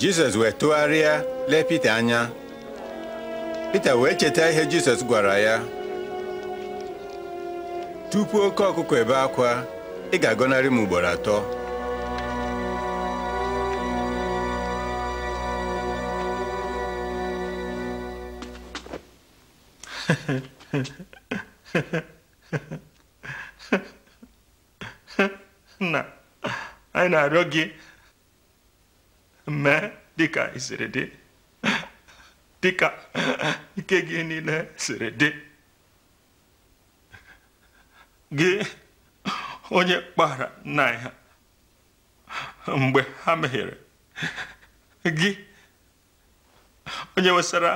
jizọs wee tụgharịa lee pita anya pita wee cheta ihe jizọs gwara ya tupu oke ọkụkọ ebe akwa ị ga-agọnarị m ugboro atọ nna anyị na-arịọ gị mee dịka ị dị dịka ike gị niile siri dị gị onye kpara nna mgbe ha mehiere gị onye wesara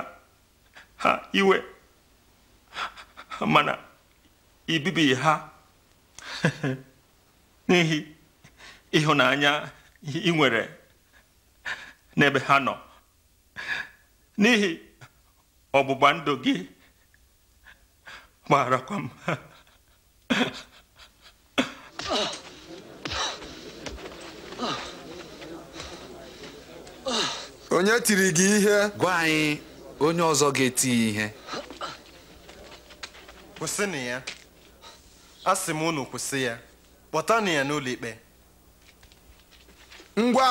ha iwe mana ibibi ha n'ihi ịhụnanya ị nwere n'ebe ha nọ n'ihi ọgbụgba ndụ gị gbarakwa m onye tiri gị ihe gwa anyị onye ọzọ ga-eti ihe kwụsịnụ ya sị m unu kwụsị ya kpọtanụ ya n'ụlọ ikpe ngwa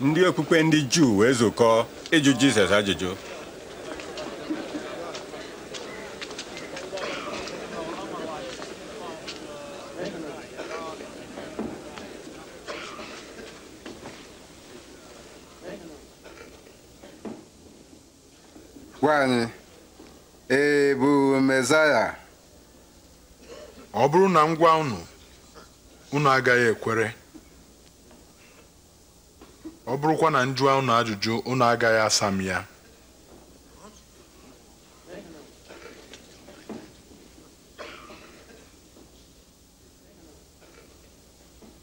ndị okpukpe ndị juu wee zukọọ ịjụ jizọs ajụjụ E ọ bụrụ na m gwa unu agaghị ekwere ọ bụrụkwa na m unu ajụjụ unu agaghị asa m ya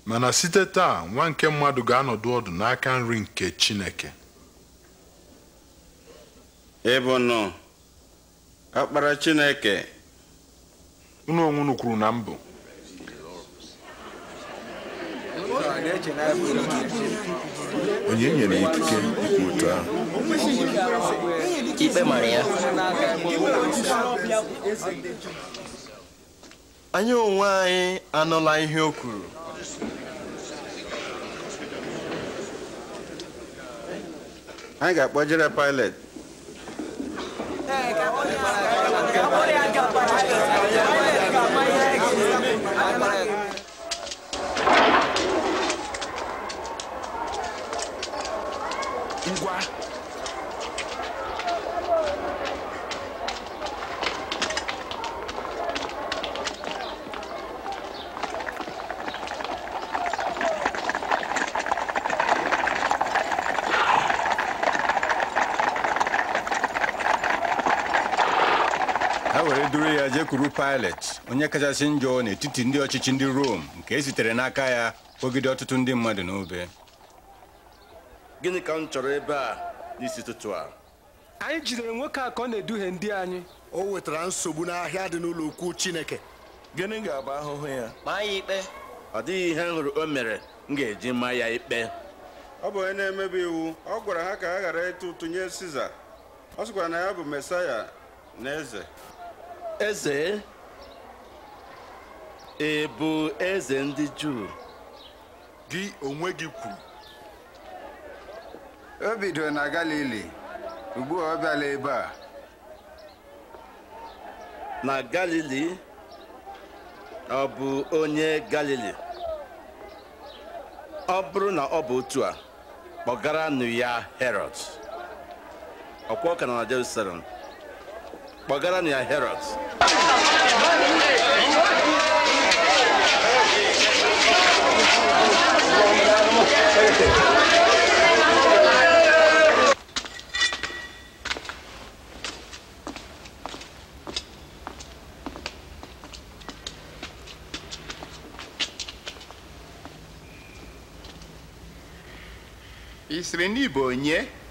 mana site taa nwa nke mmadụ ga-anọdụ ọdụ n'aka nri nke Chineke ịbụnụ ọkpara chineke unu onwe unu kwuru na mbụ onye nyere ikike ikwu otu ahụ ikpe mara ya anyị onwe anyị anụla ihe o kwuru anyị ga-akpọjere Pilet Hãy subscribe cho kênh Ghiền Mì Gõ Để không bỏ lỡ những video hấp dẫn kwuru Pilet onye kachasị njọ n'etiti ndị ọchịchị ndị Rom nke e sitere n'aka ya kpọgide ọtụtụ ndị mmadụ n'obe gịnị ka m chọrọ ebe a n'isi ụtụtụ a anyị jidere nwoke a ka ọ na-eduhie ndị anyị o wetara nsogbu n'ahịa dị n'ụlọ ukwu Chineke gịnị ga-abụ ahụhụ ya maa ya ikpe ọ dịghị ihe m hụrụ o mere m ga-eji maa ya ikpe ọ bụ onye na-emebi iwu ọ gwara ha ka ha ghara ịtụ ụtụ nye Siza ọ sịkwara na ya bụ Mesaya na eze eze ị bụ eze ndị Juu gị onwe gị kwuru o bidoro na Galili ugbua a ọ bịala ebe a na Galili ọ bụ onye Galili ọ bụrụ na ọ bụ otu a kpọgaranụ ya Herod ọkwa ọ ka na Jerusalem Bagara ni Herod. Isrenibonye.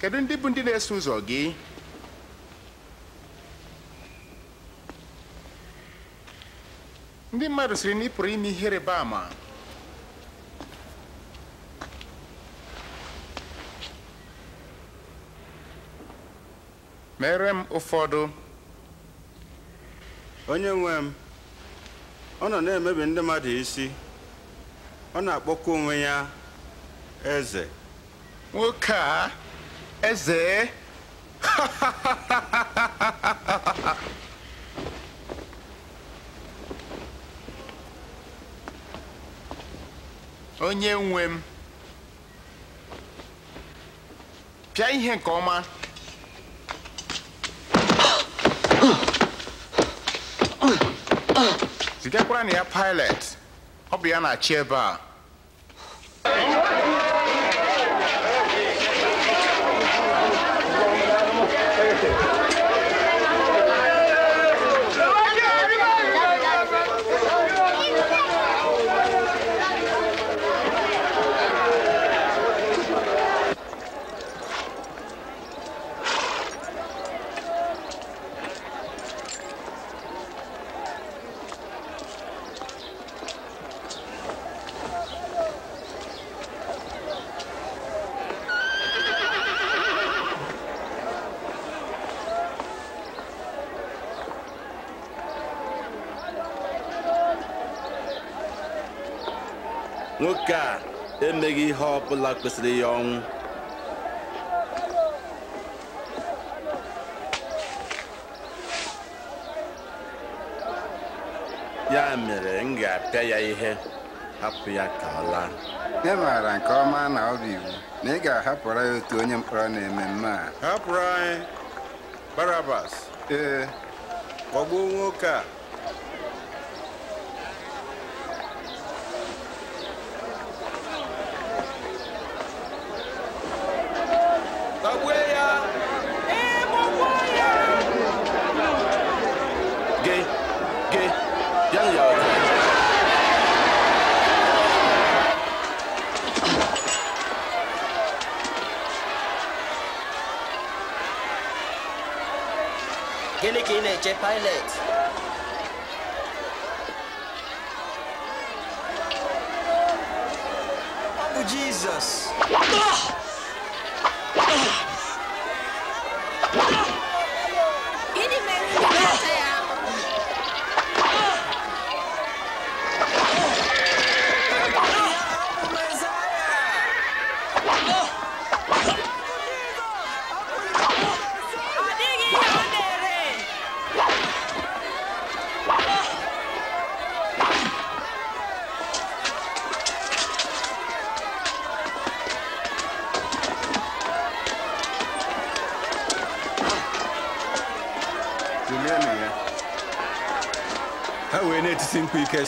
kedu ndị bụ ndị na-eso ụzọ gị ndị mmadụ siri na ị pụrụ ime ihe rịba ama mere m ụfọdụ onye nwe m ọ nọ na-emebi ndị mmadụ isi ọ na-akpọkwa onwe ya eze nwoke a Eze. Onye nwe m. Pịa ihe nke ọma. Zigakwara na ya pilot. Ọ bụ ya na-achị ebe a. emeghị ihe ọ bụla kwesịrị ya ọnwụ ya mere m ga-apịa ya ihe hapụ ya ka ọ laa ị maara nke ọma na ọ bụ iwu na ị ga-ahapụra ya otu onye mkpọrọ na-eme mme a hapụrụ anyị barabas ee kpọgbuo nwoke a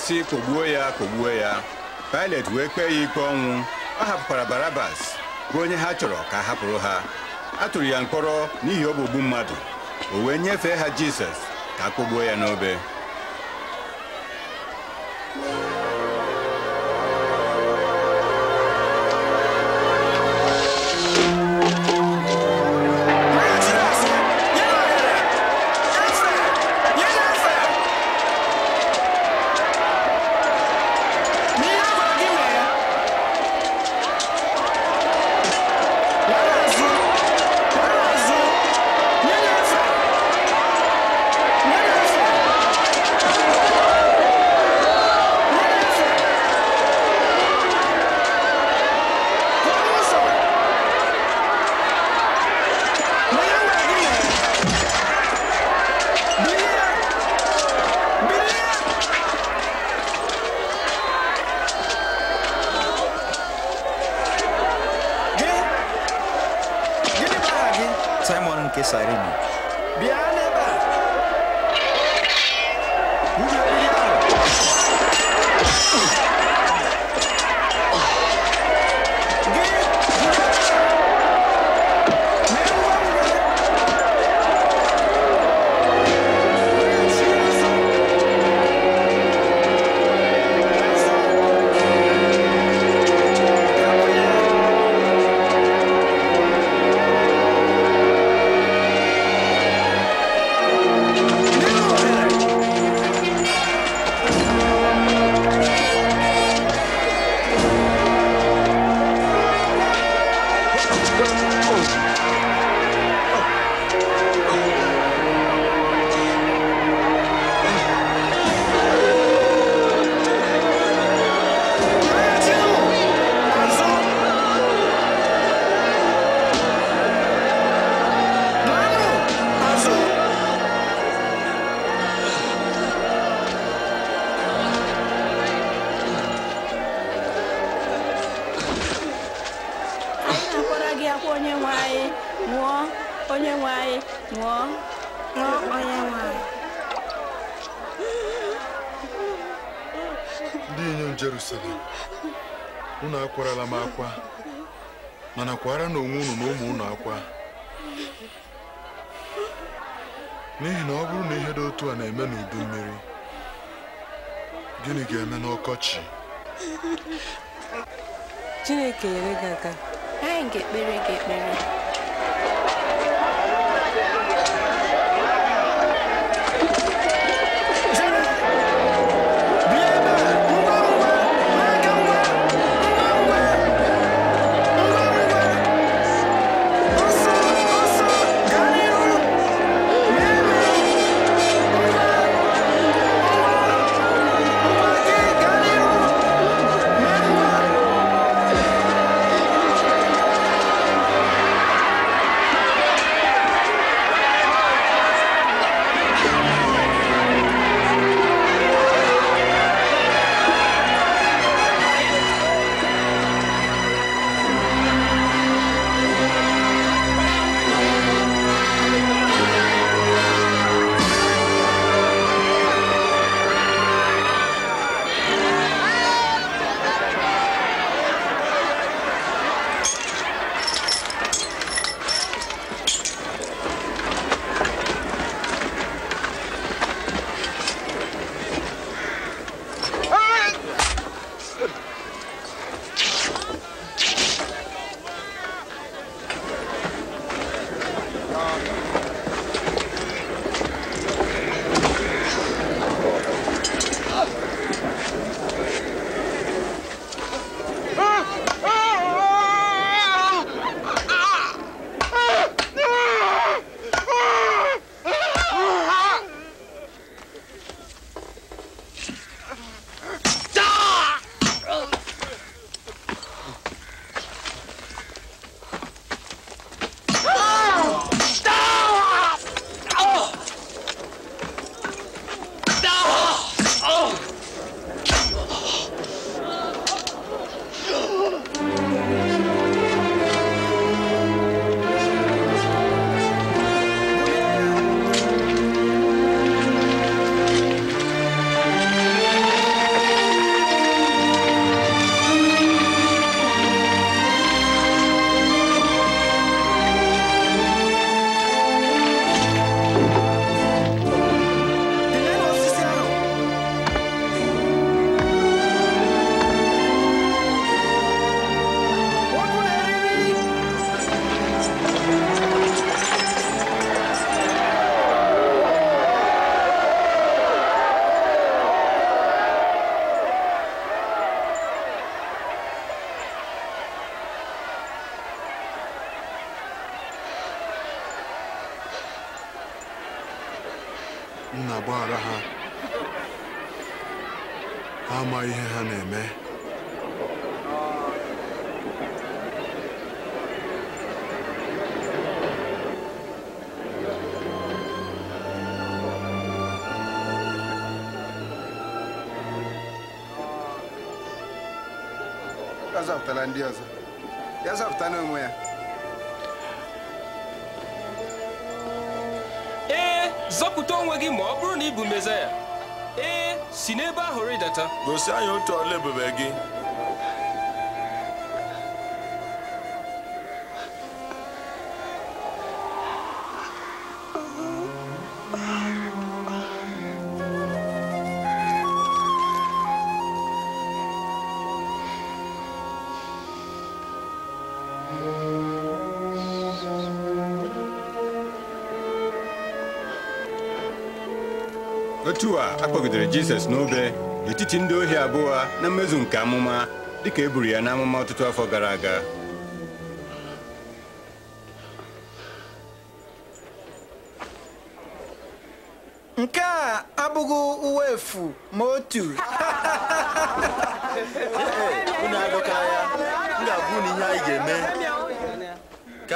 na kpọgbuo ya kpọgbuo ya Pilet wee kpee ya ikpe ọnwụ ọ hapụkwara Barabas bụ onye ha chọrọ ka a hapụrụ ha a tụrụ ya mkpọrọ n'ihi ọgbụgbu mmadụ o wee nyefee ha Jizọs ka a kpọgbuo ya n'obe zapụtara ndị ọzọ ya zapụta n'onwe ya ee eh, zọpụta onwe gị ma ọ bụrụ na ị bụ mezaya ee eh, si n'ebe ahụ rịdata gosi anyị otu ọla ebube gị otu a akpọgidere Jizọs n'obe n'etiti ndị ohi abụọ na mmezu nke amụma dịka e buru ya n'amụma ọtụtụ afọ gara aga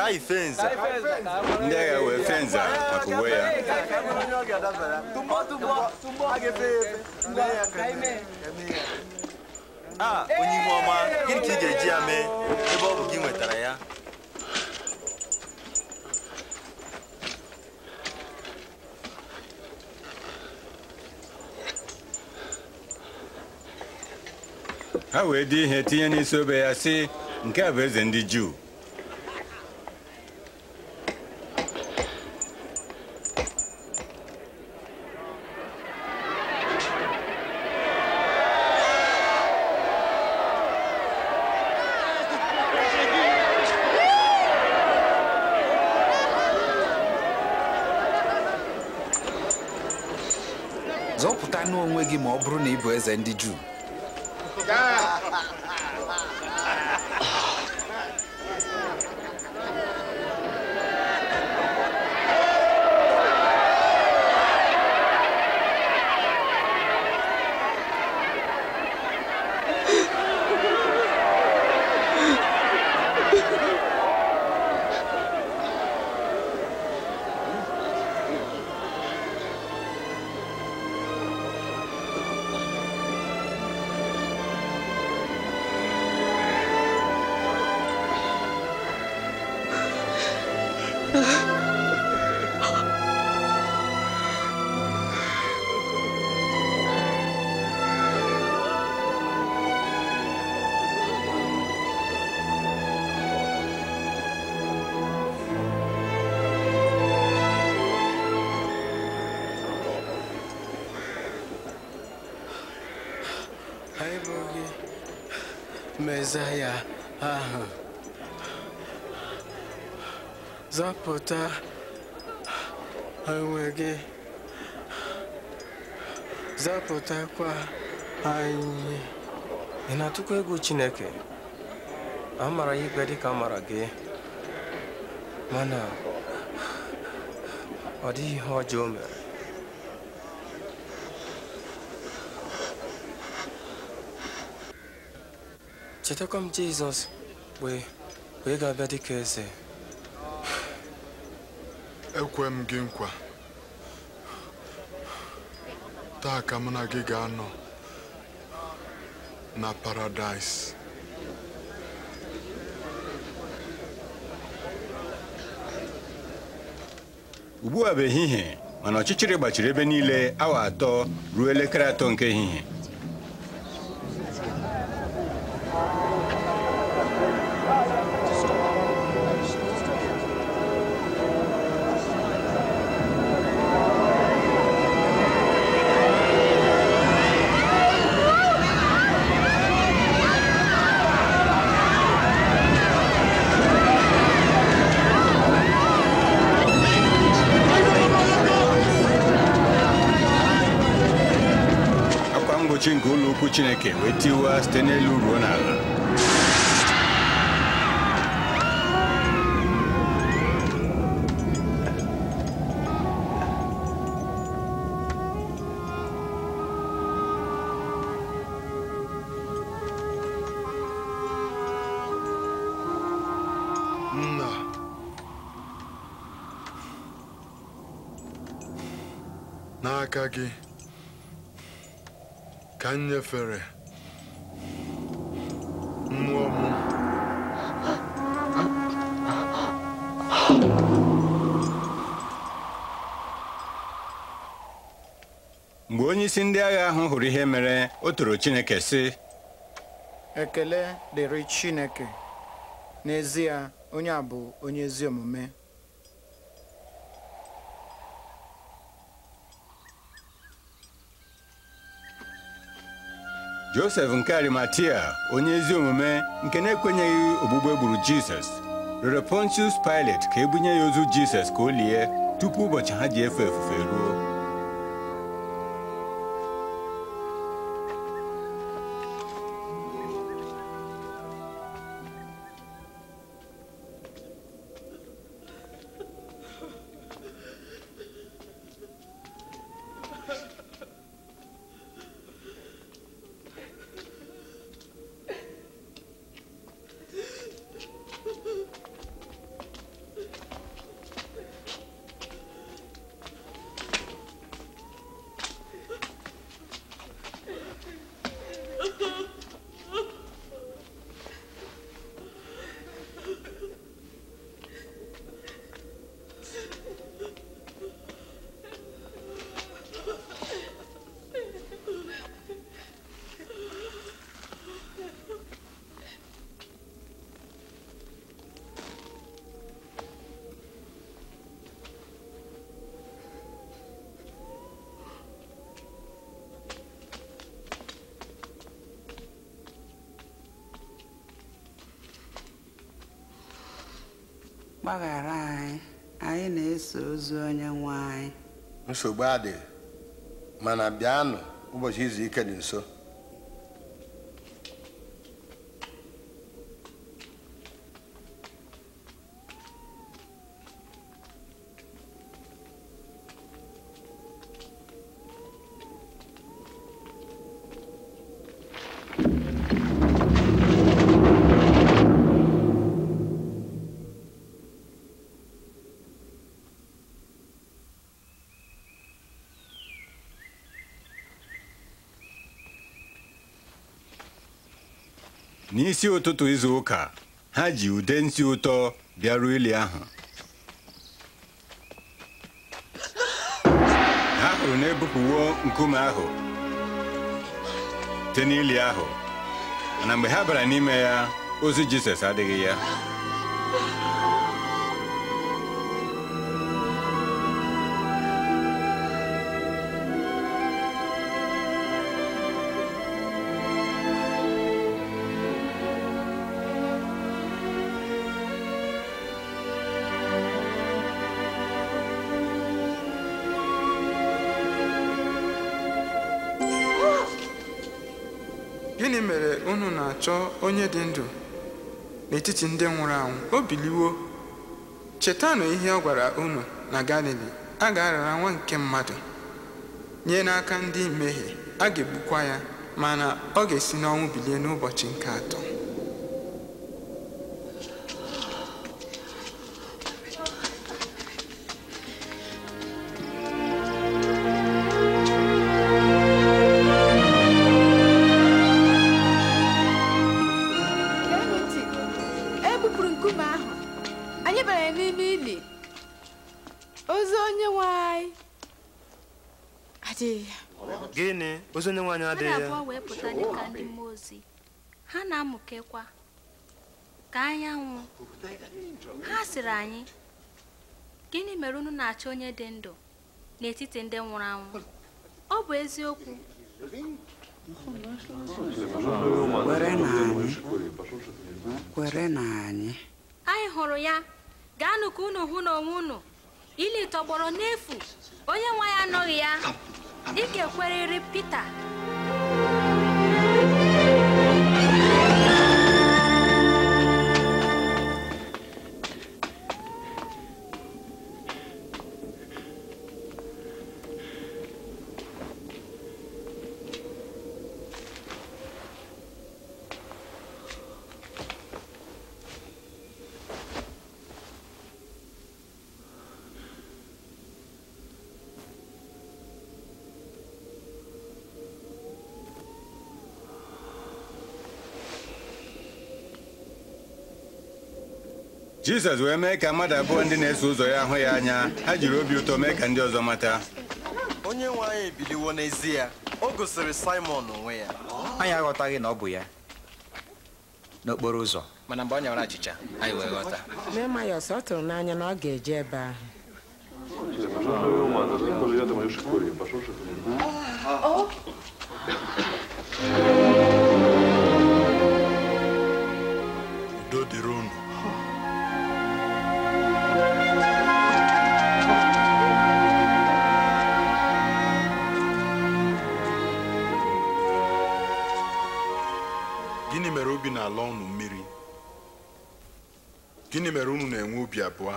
taa ifenza ndị agha wee fenza maka uwe ya a onye ihu ọma gịnị ka ị ga-eji ya ah, eh, mee gị nwetara ya ha wee dị ihe tinye n'isi obe ya si nke a bụ eze ndị juu and the Jew. zaa ya ahụ zọpụta onwe gị zọpụtakwa anyị ị na-atụkwa egwu Chineke a mara ya ikpe ka a mara gị mana ọ dịghị ihe ọjọọ mere chetakwa m Jizọs wee wee ga-abịa dịka eze ekwe m gị nkwa taa ka m na gị ga-anọ na paradaịs ugbu a bụ ehihie mana ọchịchịrị gbachiri ebe niile awa atọ ruo elekere atọ nke ehihie wait iwe ha site n'elu ruo n'ala n'aka gị ka onyeisi ndị agha ahụ hụrụ ihe mere o toro Chineke sị ekele dịrị Chineke n'ezie onye a bụ onye ezi omume Josef nke Arimatia onye ezi omume nke na-ekwenyeghị ogbugbe egburu gburu Jizọs rịọrọ Pontius Pilate ka ebunye ya ozu Jizọs ka o lie tupu ụbọchị ha ji efe efufe ruo gbaghara anyị anyị na-eso ozu onye nwe anyị nsogbu adịghị mana bịanụ ụbọchị izu ike dị nso isi ụtụtụ izu ụka ha ji ude nsi ụtọ bịaruo ili ahụ ha hụrụ na-ebupụwo nkume ahụ site n'ili ahụ mana mgbe ha bara n'ime ya ozi Jizọs adịghị ya chọọ onye dị ndụ n'etiti ndị nwụrụ anwụ o biliwo chetanụ ihe ọ gwara unu na galili a ga-arara nwa nke mmadụ nye n'aka ndị mmehie a ga-egbukwa ya mana ọ ga-esi n'ọnwụ bilie n'ụbọchị nke atọ sịrị anyị gịnị mere unu na-achọ onye dị ndụ n'etiti ndị nwụrụ anwụ ọ bụ eziokwu kwere na anyị anyị hụrụ ya gaanụ ka unu hụ n'onwe unu ili tọgbọrọ n'efu onye nwe ya anọghị ya dịka ekweriri Pita Jizọs wee mee ka mmadụ abụọ ndị na-eso ụzọ ya ahụ ya anya ha jiri obi ụtọ mee ka ndị ọzọ mata onye nwe anyị ebiliwo n'ezie o gosiri Simon onwe ya anyị aghọtaghị na ọ bụ ya n'okporo ụzọ mana mgbe ọ nyawara achịcha anyị wee ghọta Nemayọs ọ tụrụ n'anya na ọ ga-eje ebe ahụ gịnị mere obi na-ala ọnụ mmiri gịnị mere unu na-enwe obi abụọ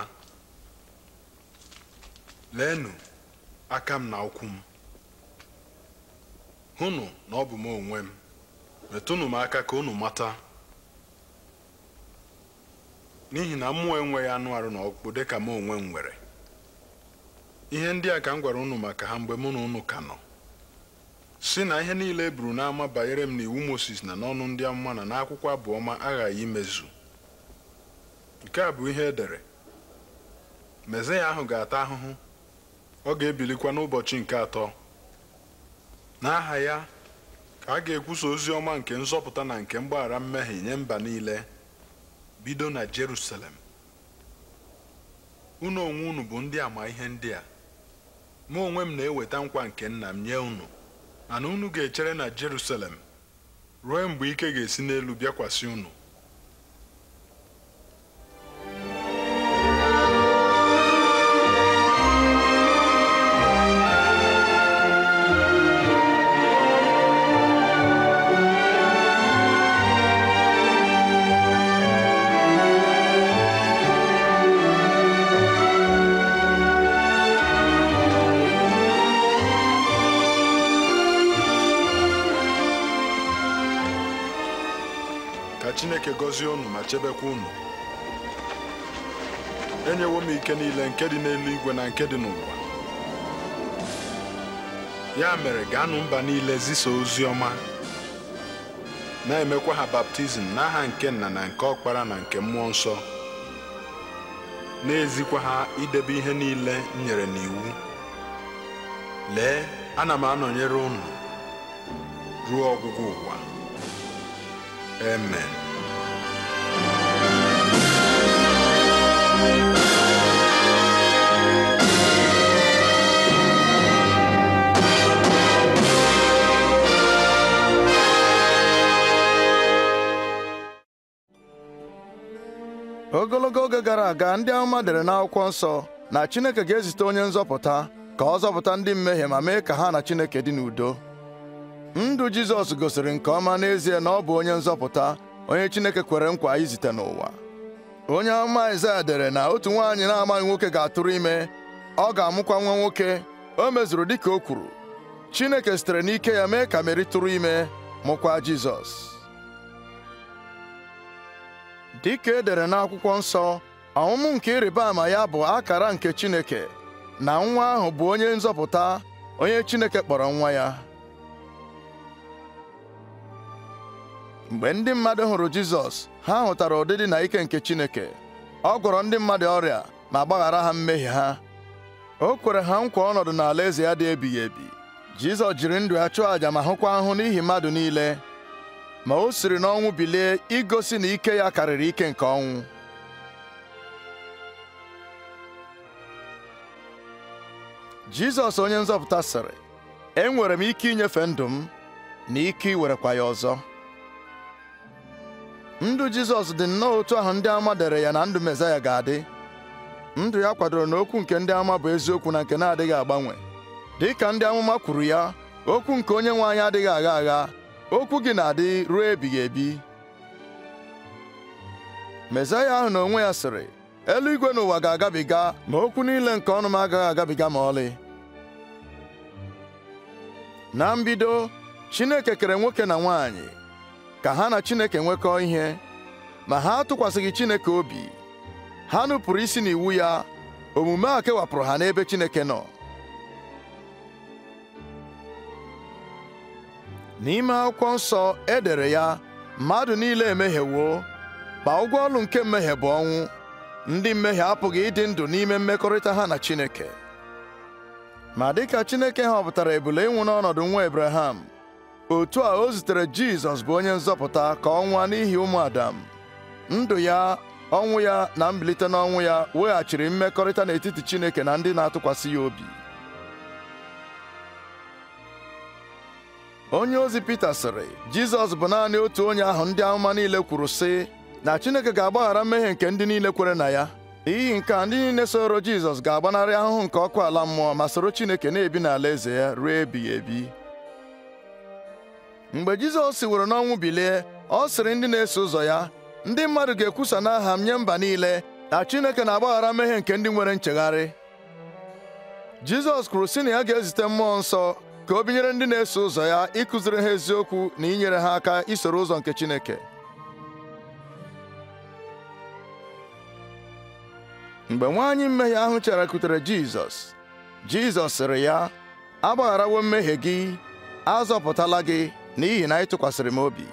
leenụ aka m na ụkwụ m hụnụ na ọ bụ m onwe m metụnụ m aka ka unu mata n'ihi na mmụọ enweghị anụ arụ na ọkpụkpụ ka m onwe m nwere ihe ndị a ka m gwara unu maka ha mgbe mụ na unu ka nọ si na ihe niile e buru n'ama banyere m n'iwu Moses na n'ọnụ ndị amụma na n'akwụkwọ abụọma aghaghị imezu nke a bụ ihe edere, dere ya ahụ ga-ata ahụhụ ọ ga-ebilikwa n'ụbọchị nke atọ n'aha ya ka a ga-ekwusa ozi ọma nke nzọpụta na nke mgbaghara mmehie nye mba niile bido na Jerusalem unu onwe unu bụ ndị ama ihe ndị a mụ onwe m na-eweta nkwa nke nna m nye unu ana unu ga-echere na Jerusalem ruo mgbe ike ga-esi n'elu bịakwasị unu gọzie unu ma chebekwa unu enyewo m ike niile nke dị n'eluigwe na nke dị n'ụwa ya mere gaanụ mba niile zisa ozi ọma na-emekwa ha baptizim n'aha nke nna na nke ọkpara na nke mmụọ nsọ na-ezikwa ha idebe ihe niile m nyere n'iwu lee ana m anọnyere unu ruo ọgwụgwụ ụwa ogologo oge gara aga ndị amụma dere n'akwụkwọ nsọ na Chineke ga-ezite onye nzọpụta ka ọ zọpụta ndị mmehie ma mee ka ha na Chineke dị n'udo ndụ Jizọs gosiri nke ọma n'ezie na ọ bụ onye nzọpụta onye Chineke kwere nkwa izite n'ụwa onye amụma Aịzaya dere na otu nwaanyị na-amaghị nwoke ga-atụrụ ime ọ ga-amụkwa nwa nwoke o mezuru dịka o kwuru Chineke sitere n'ike ya mee ka Meri tụrụ ime mụkwa Jizọs dịka e dere n'akwụkwọ nsọ ọmụmụ nke ịrịba ama ya bụ akara nke Chineke na nwa ahụ bụ onye nzọpụta onye Chineke kpọrọ nwa ya mgbe ndị mmadụ hụrụ Jizọs ha hụtara ụdịdị na ike nke Chineke ọ gwọrọ ndị mmadụ ọrịa ma gbaghara ha mmehie ha o kwere ha nkwa ọnọdụ n'alaeze ya dị ebighị ebi Jizọs jiri ndụ ya chụọ àjà ma hụkwa ahụ n'ihi mmadụ niile ma o siri n'ọnwụ bilie igosi na ike ya karịrị ike nke ọnwụ Jizọs onye nzọpụta sịrị enwere m ike inyefe ndụ m na ike iwerekwa ya ọzọ ndụ Jizọs dị nnọọ otu ahụ ndị ama dere ya na ndụ Mezaya ga-adị ndụ ya kwadoro na okwu nke ndị ama bụ eziokwu na nke na-adịghị agbanwe dị ka ndị amụma kwuru ya okwu nke onye nwe anyị adịghị agha agha okwu gị na-adị ruo ebighị ebi Mesaya ahụ na onwe ya sịrị eluigwe n'ụwa ga-agabiga ma okwu niile nke ọnụ m agaghị agabiga ma ọlị na mbido Chineke kere nwoke na nwanyị ka ha na Chineke nwekọọ ihe ma ha atụkwasịghị Chineke obi ha nupụrụ isi n'iwu ya omume a kewapụrụ ha n'ebe Chineke nọ n'ime akwụkwọ nsọ e dere ya mmadụ niile emehiewo ma ụgwọ ọlụ nke mmehie bụ ọnwụ ndị mmehie apụghị ịdị ndụ n'ime mmekọrịta ha na Chineke ma dịka Chineke họpụtara ebule ịnwụ n'ọnọdụ nwa ebraham otu a o zitere Jizọs bụ onye nzọpụta ka ọ nwụọ n'ihi ụmụ Adam ndụ ya ọnwụ ya na mbilite n'ọnwụ ya weghachiri mmekọrịta n'etiti Chineke na ndị na-atụkwasị ya obi onye ozi Pita sịrị Jizọs bụ naanị otu onye ahụ ndị amụma niile kwuru sị na Chineke ga-agbaghara mmehie nke ndị niile kwere na ya n'ihi nke a ndị niile soro Jizọs ga-agbanarị ahụhụ nke ọkụ ala mmụọ ma soro Chineke na-ebi n'ala eze ya ruo ebighị ebi mgbe Jizọs siworo n'ọnwụ bilie ọ sịrị ndị na-eso ụzọ ya ndị mmadụ ga-ekwusa n'aha m nye mba niile na Chineke na-agbaghara mmehie nke ndị nwere nchegharị Jizọs kwuru sị na ya ga-ezite mmụọ nsọ ka o binyere ndị na-eso ụzọ ya ịkụziri ha eziokwu na inyere ha aka isoro ụzọ nke Chineke mgbe nwaanyị mmehie ahụ charakwutere Jizọs Jizọs sịrị ya agbagharawo mmehie gị azọpụtala gị n'ihi na ị tụkwasịrị m obi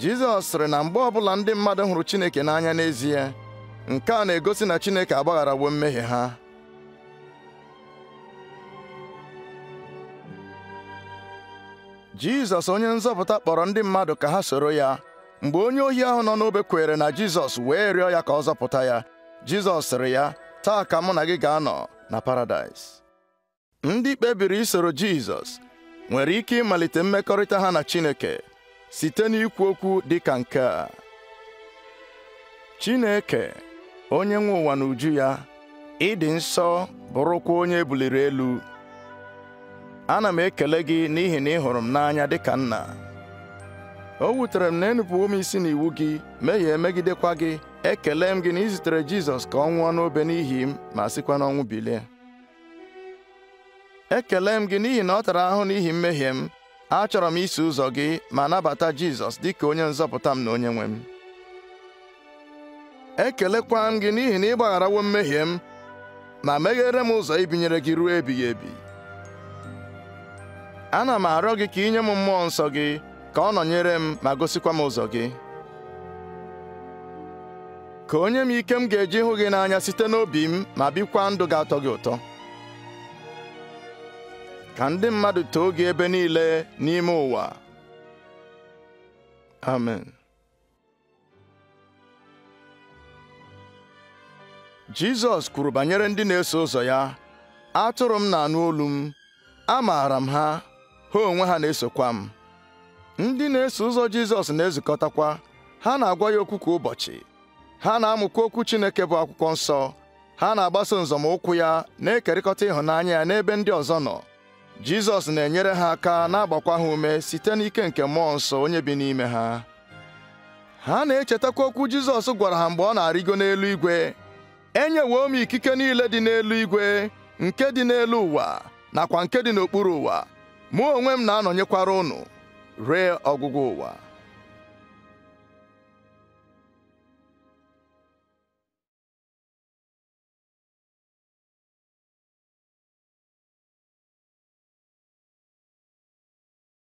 Jizọs sịrị na mgbe ọbụla ndị mmadụ hụrụ Chineke n'anya n'ezie nke a na-egosi na Chineke agbagharawo mmehie ha Jizọs onye nzọpụta kpọrọ ndị mmadụ ka ha soro ya mgbe onye ohi ahụ nọ n'obe kwere na Jizọs wee rịọ ya ka ọ zọpụta ya Jizọs sịrị ya taa ka mụ na gị ga-anọ na Paradaịs ndị kpebiri isoro Jizọs nwere ike ịmalite mmekọrịta ha na Chineke site n'ikwu okwu dị ka nke a Chineke onye nwe ụwa na uju ya ịdị nsọ bụrụkwa onye ebuliri elu ana m ekele gị n'ihi na ị hụrụ m n'anya dịka nna o wutere m na enupụwo m isi n'iwu gị mehie megidekwa gị ekele m gị na ịzutere Jizọs ka ọ nwụọ n'obe n'ihi m ma sikwa n'ọnwụ bilie ekele m gị n'ihi na ọ tara ahụ n'ihi mmehie m achọrọ m iso ụzọ gị ma nabata Jizọs dịka onye nzọpụta m na onye nwe m ekelekwa m gị n'ihi na ị gbagharawo mmehie m ma meghere m ụzọ ibinyere gị ruo ebighị ebi ana m arịọ gị ka inye m mmụọ nsọ gị ka ọ nọnyere m ma gosikwa m ụzọ gị ka onye m ike m ga-eji hụ gị n'anya site n'obi m ma bikwa ndụ ga-atọ gị ụtọ ka ndị mmadụ too gị ebe niile n'ime ụwa amen Jizọs kwuru banyere ndị na-eso ụzọ ya atụrụ m na-anụ olu m amaara m ha ha onwe ha na-esokwa m ndị na-eso ụzọ Jizọs na-ezukọtakwa ha na-agwa ya okwu kwa ụbọchị ha na-amụkwa okwu Chineke bụ akwụkwọ nsọ ha na-agbaso nzọmụkwụ ya na-ekerịkọta ịhụnanya ya n'ebe ndị ọzọ nọ Jizọs na-enyere ha aka na-agbakwa ha ume site n'ike nke mmụọ nsọ onye bi n'ime ha ha na-echetakwa okwu Jizọs gwara ha mgbe ọ na-arịgo n'elu igwe enyewo m ikike niile dị n'elu igwe nke dị n'elu ụwa nakwa nke dị n'okpuru ụwa mụ onwe m na-anọnyekwara unu ree ọgwụgwụ ụwa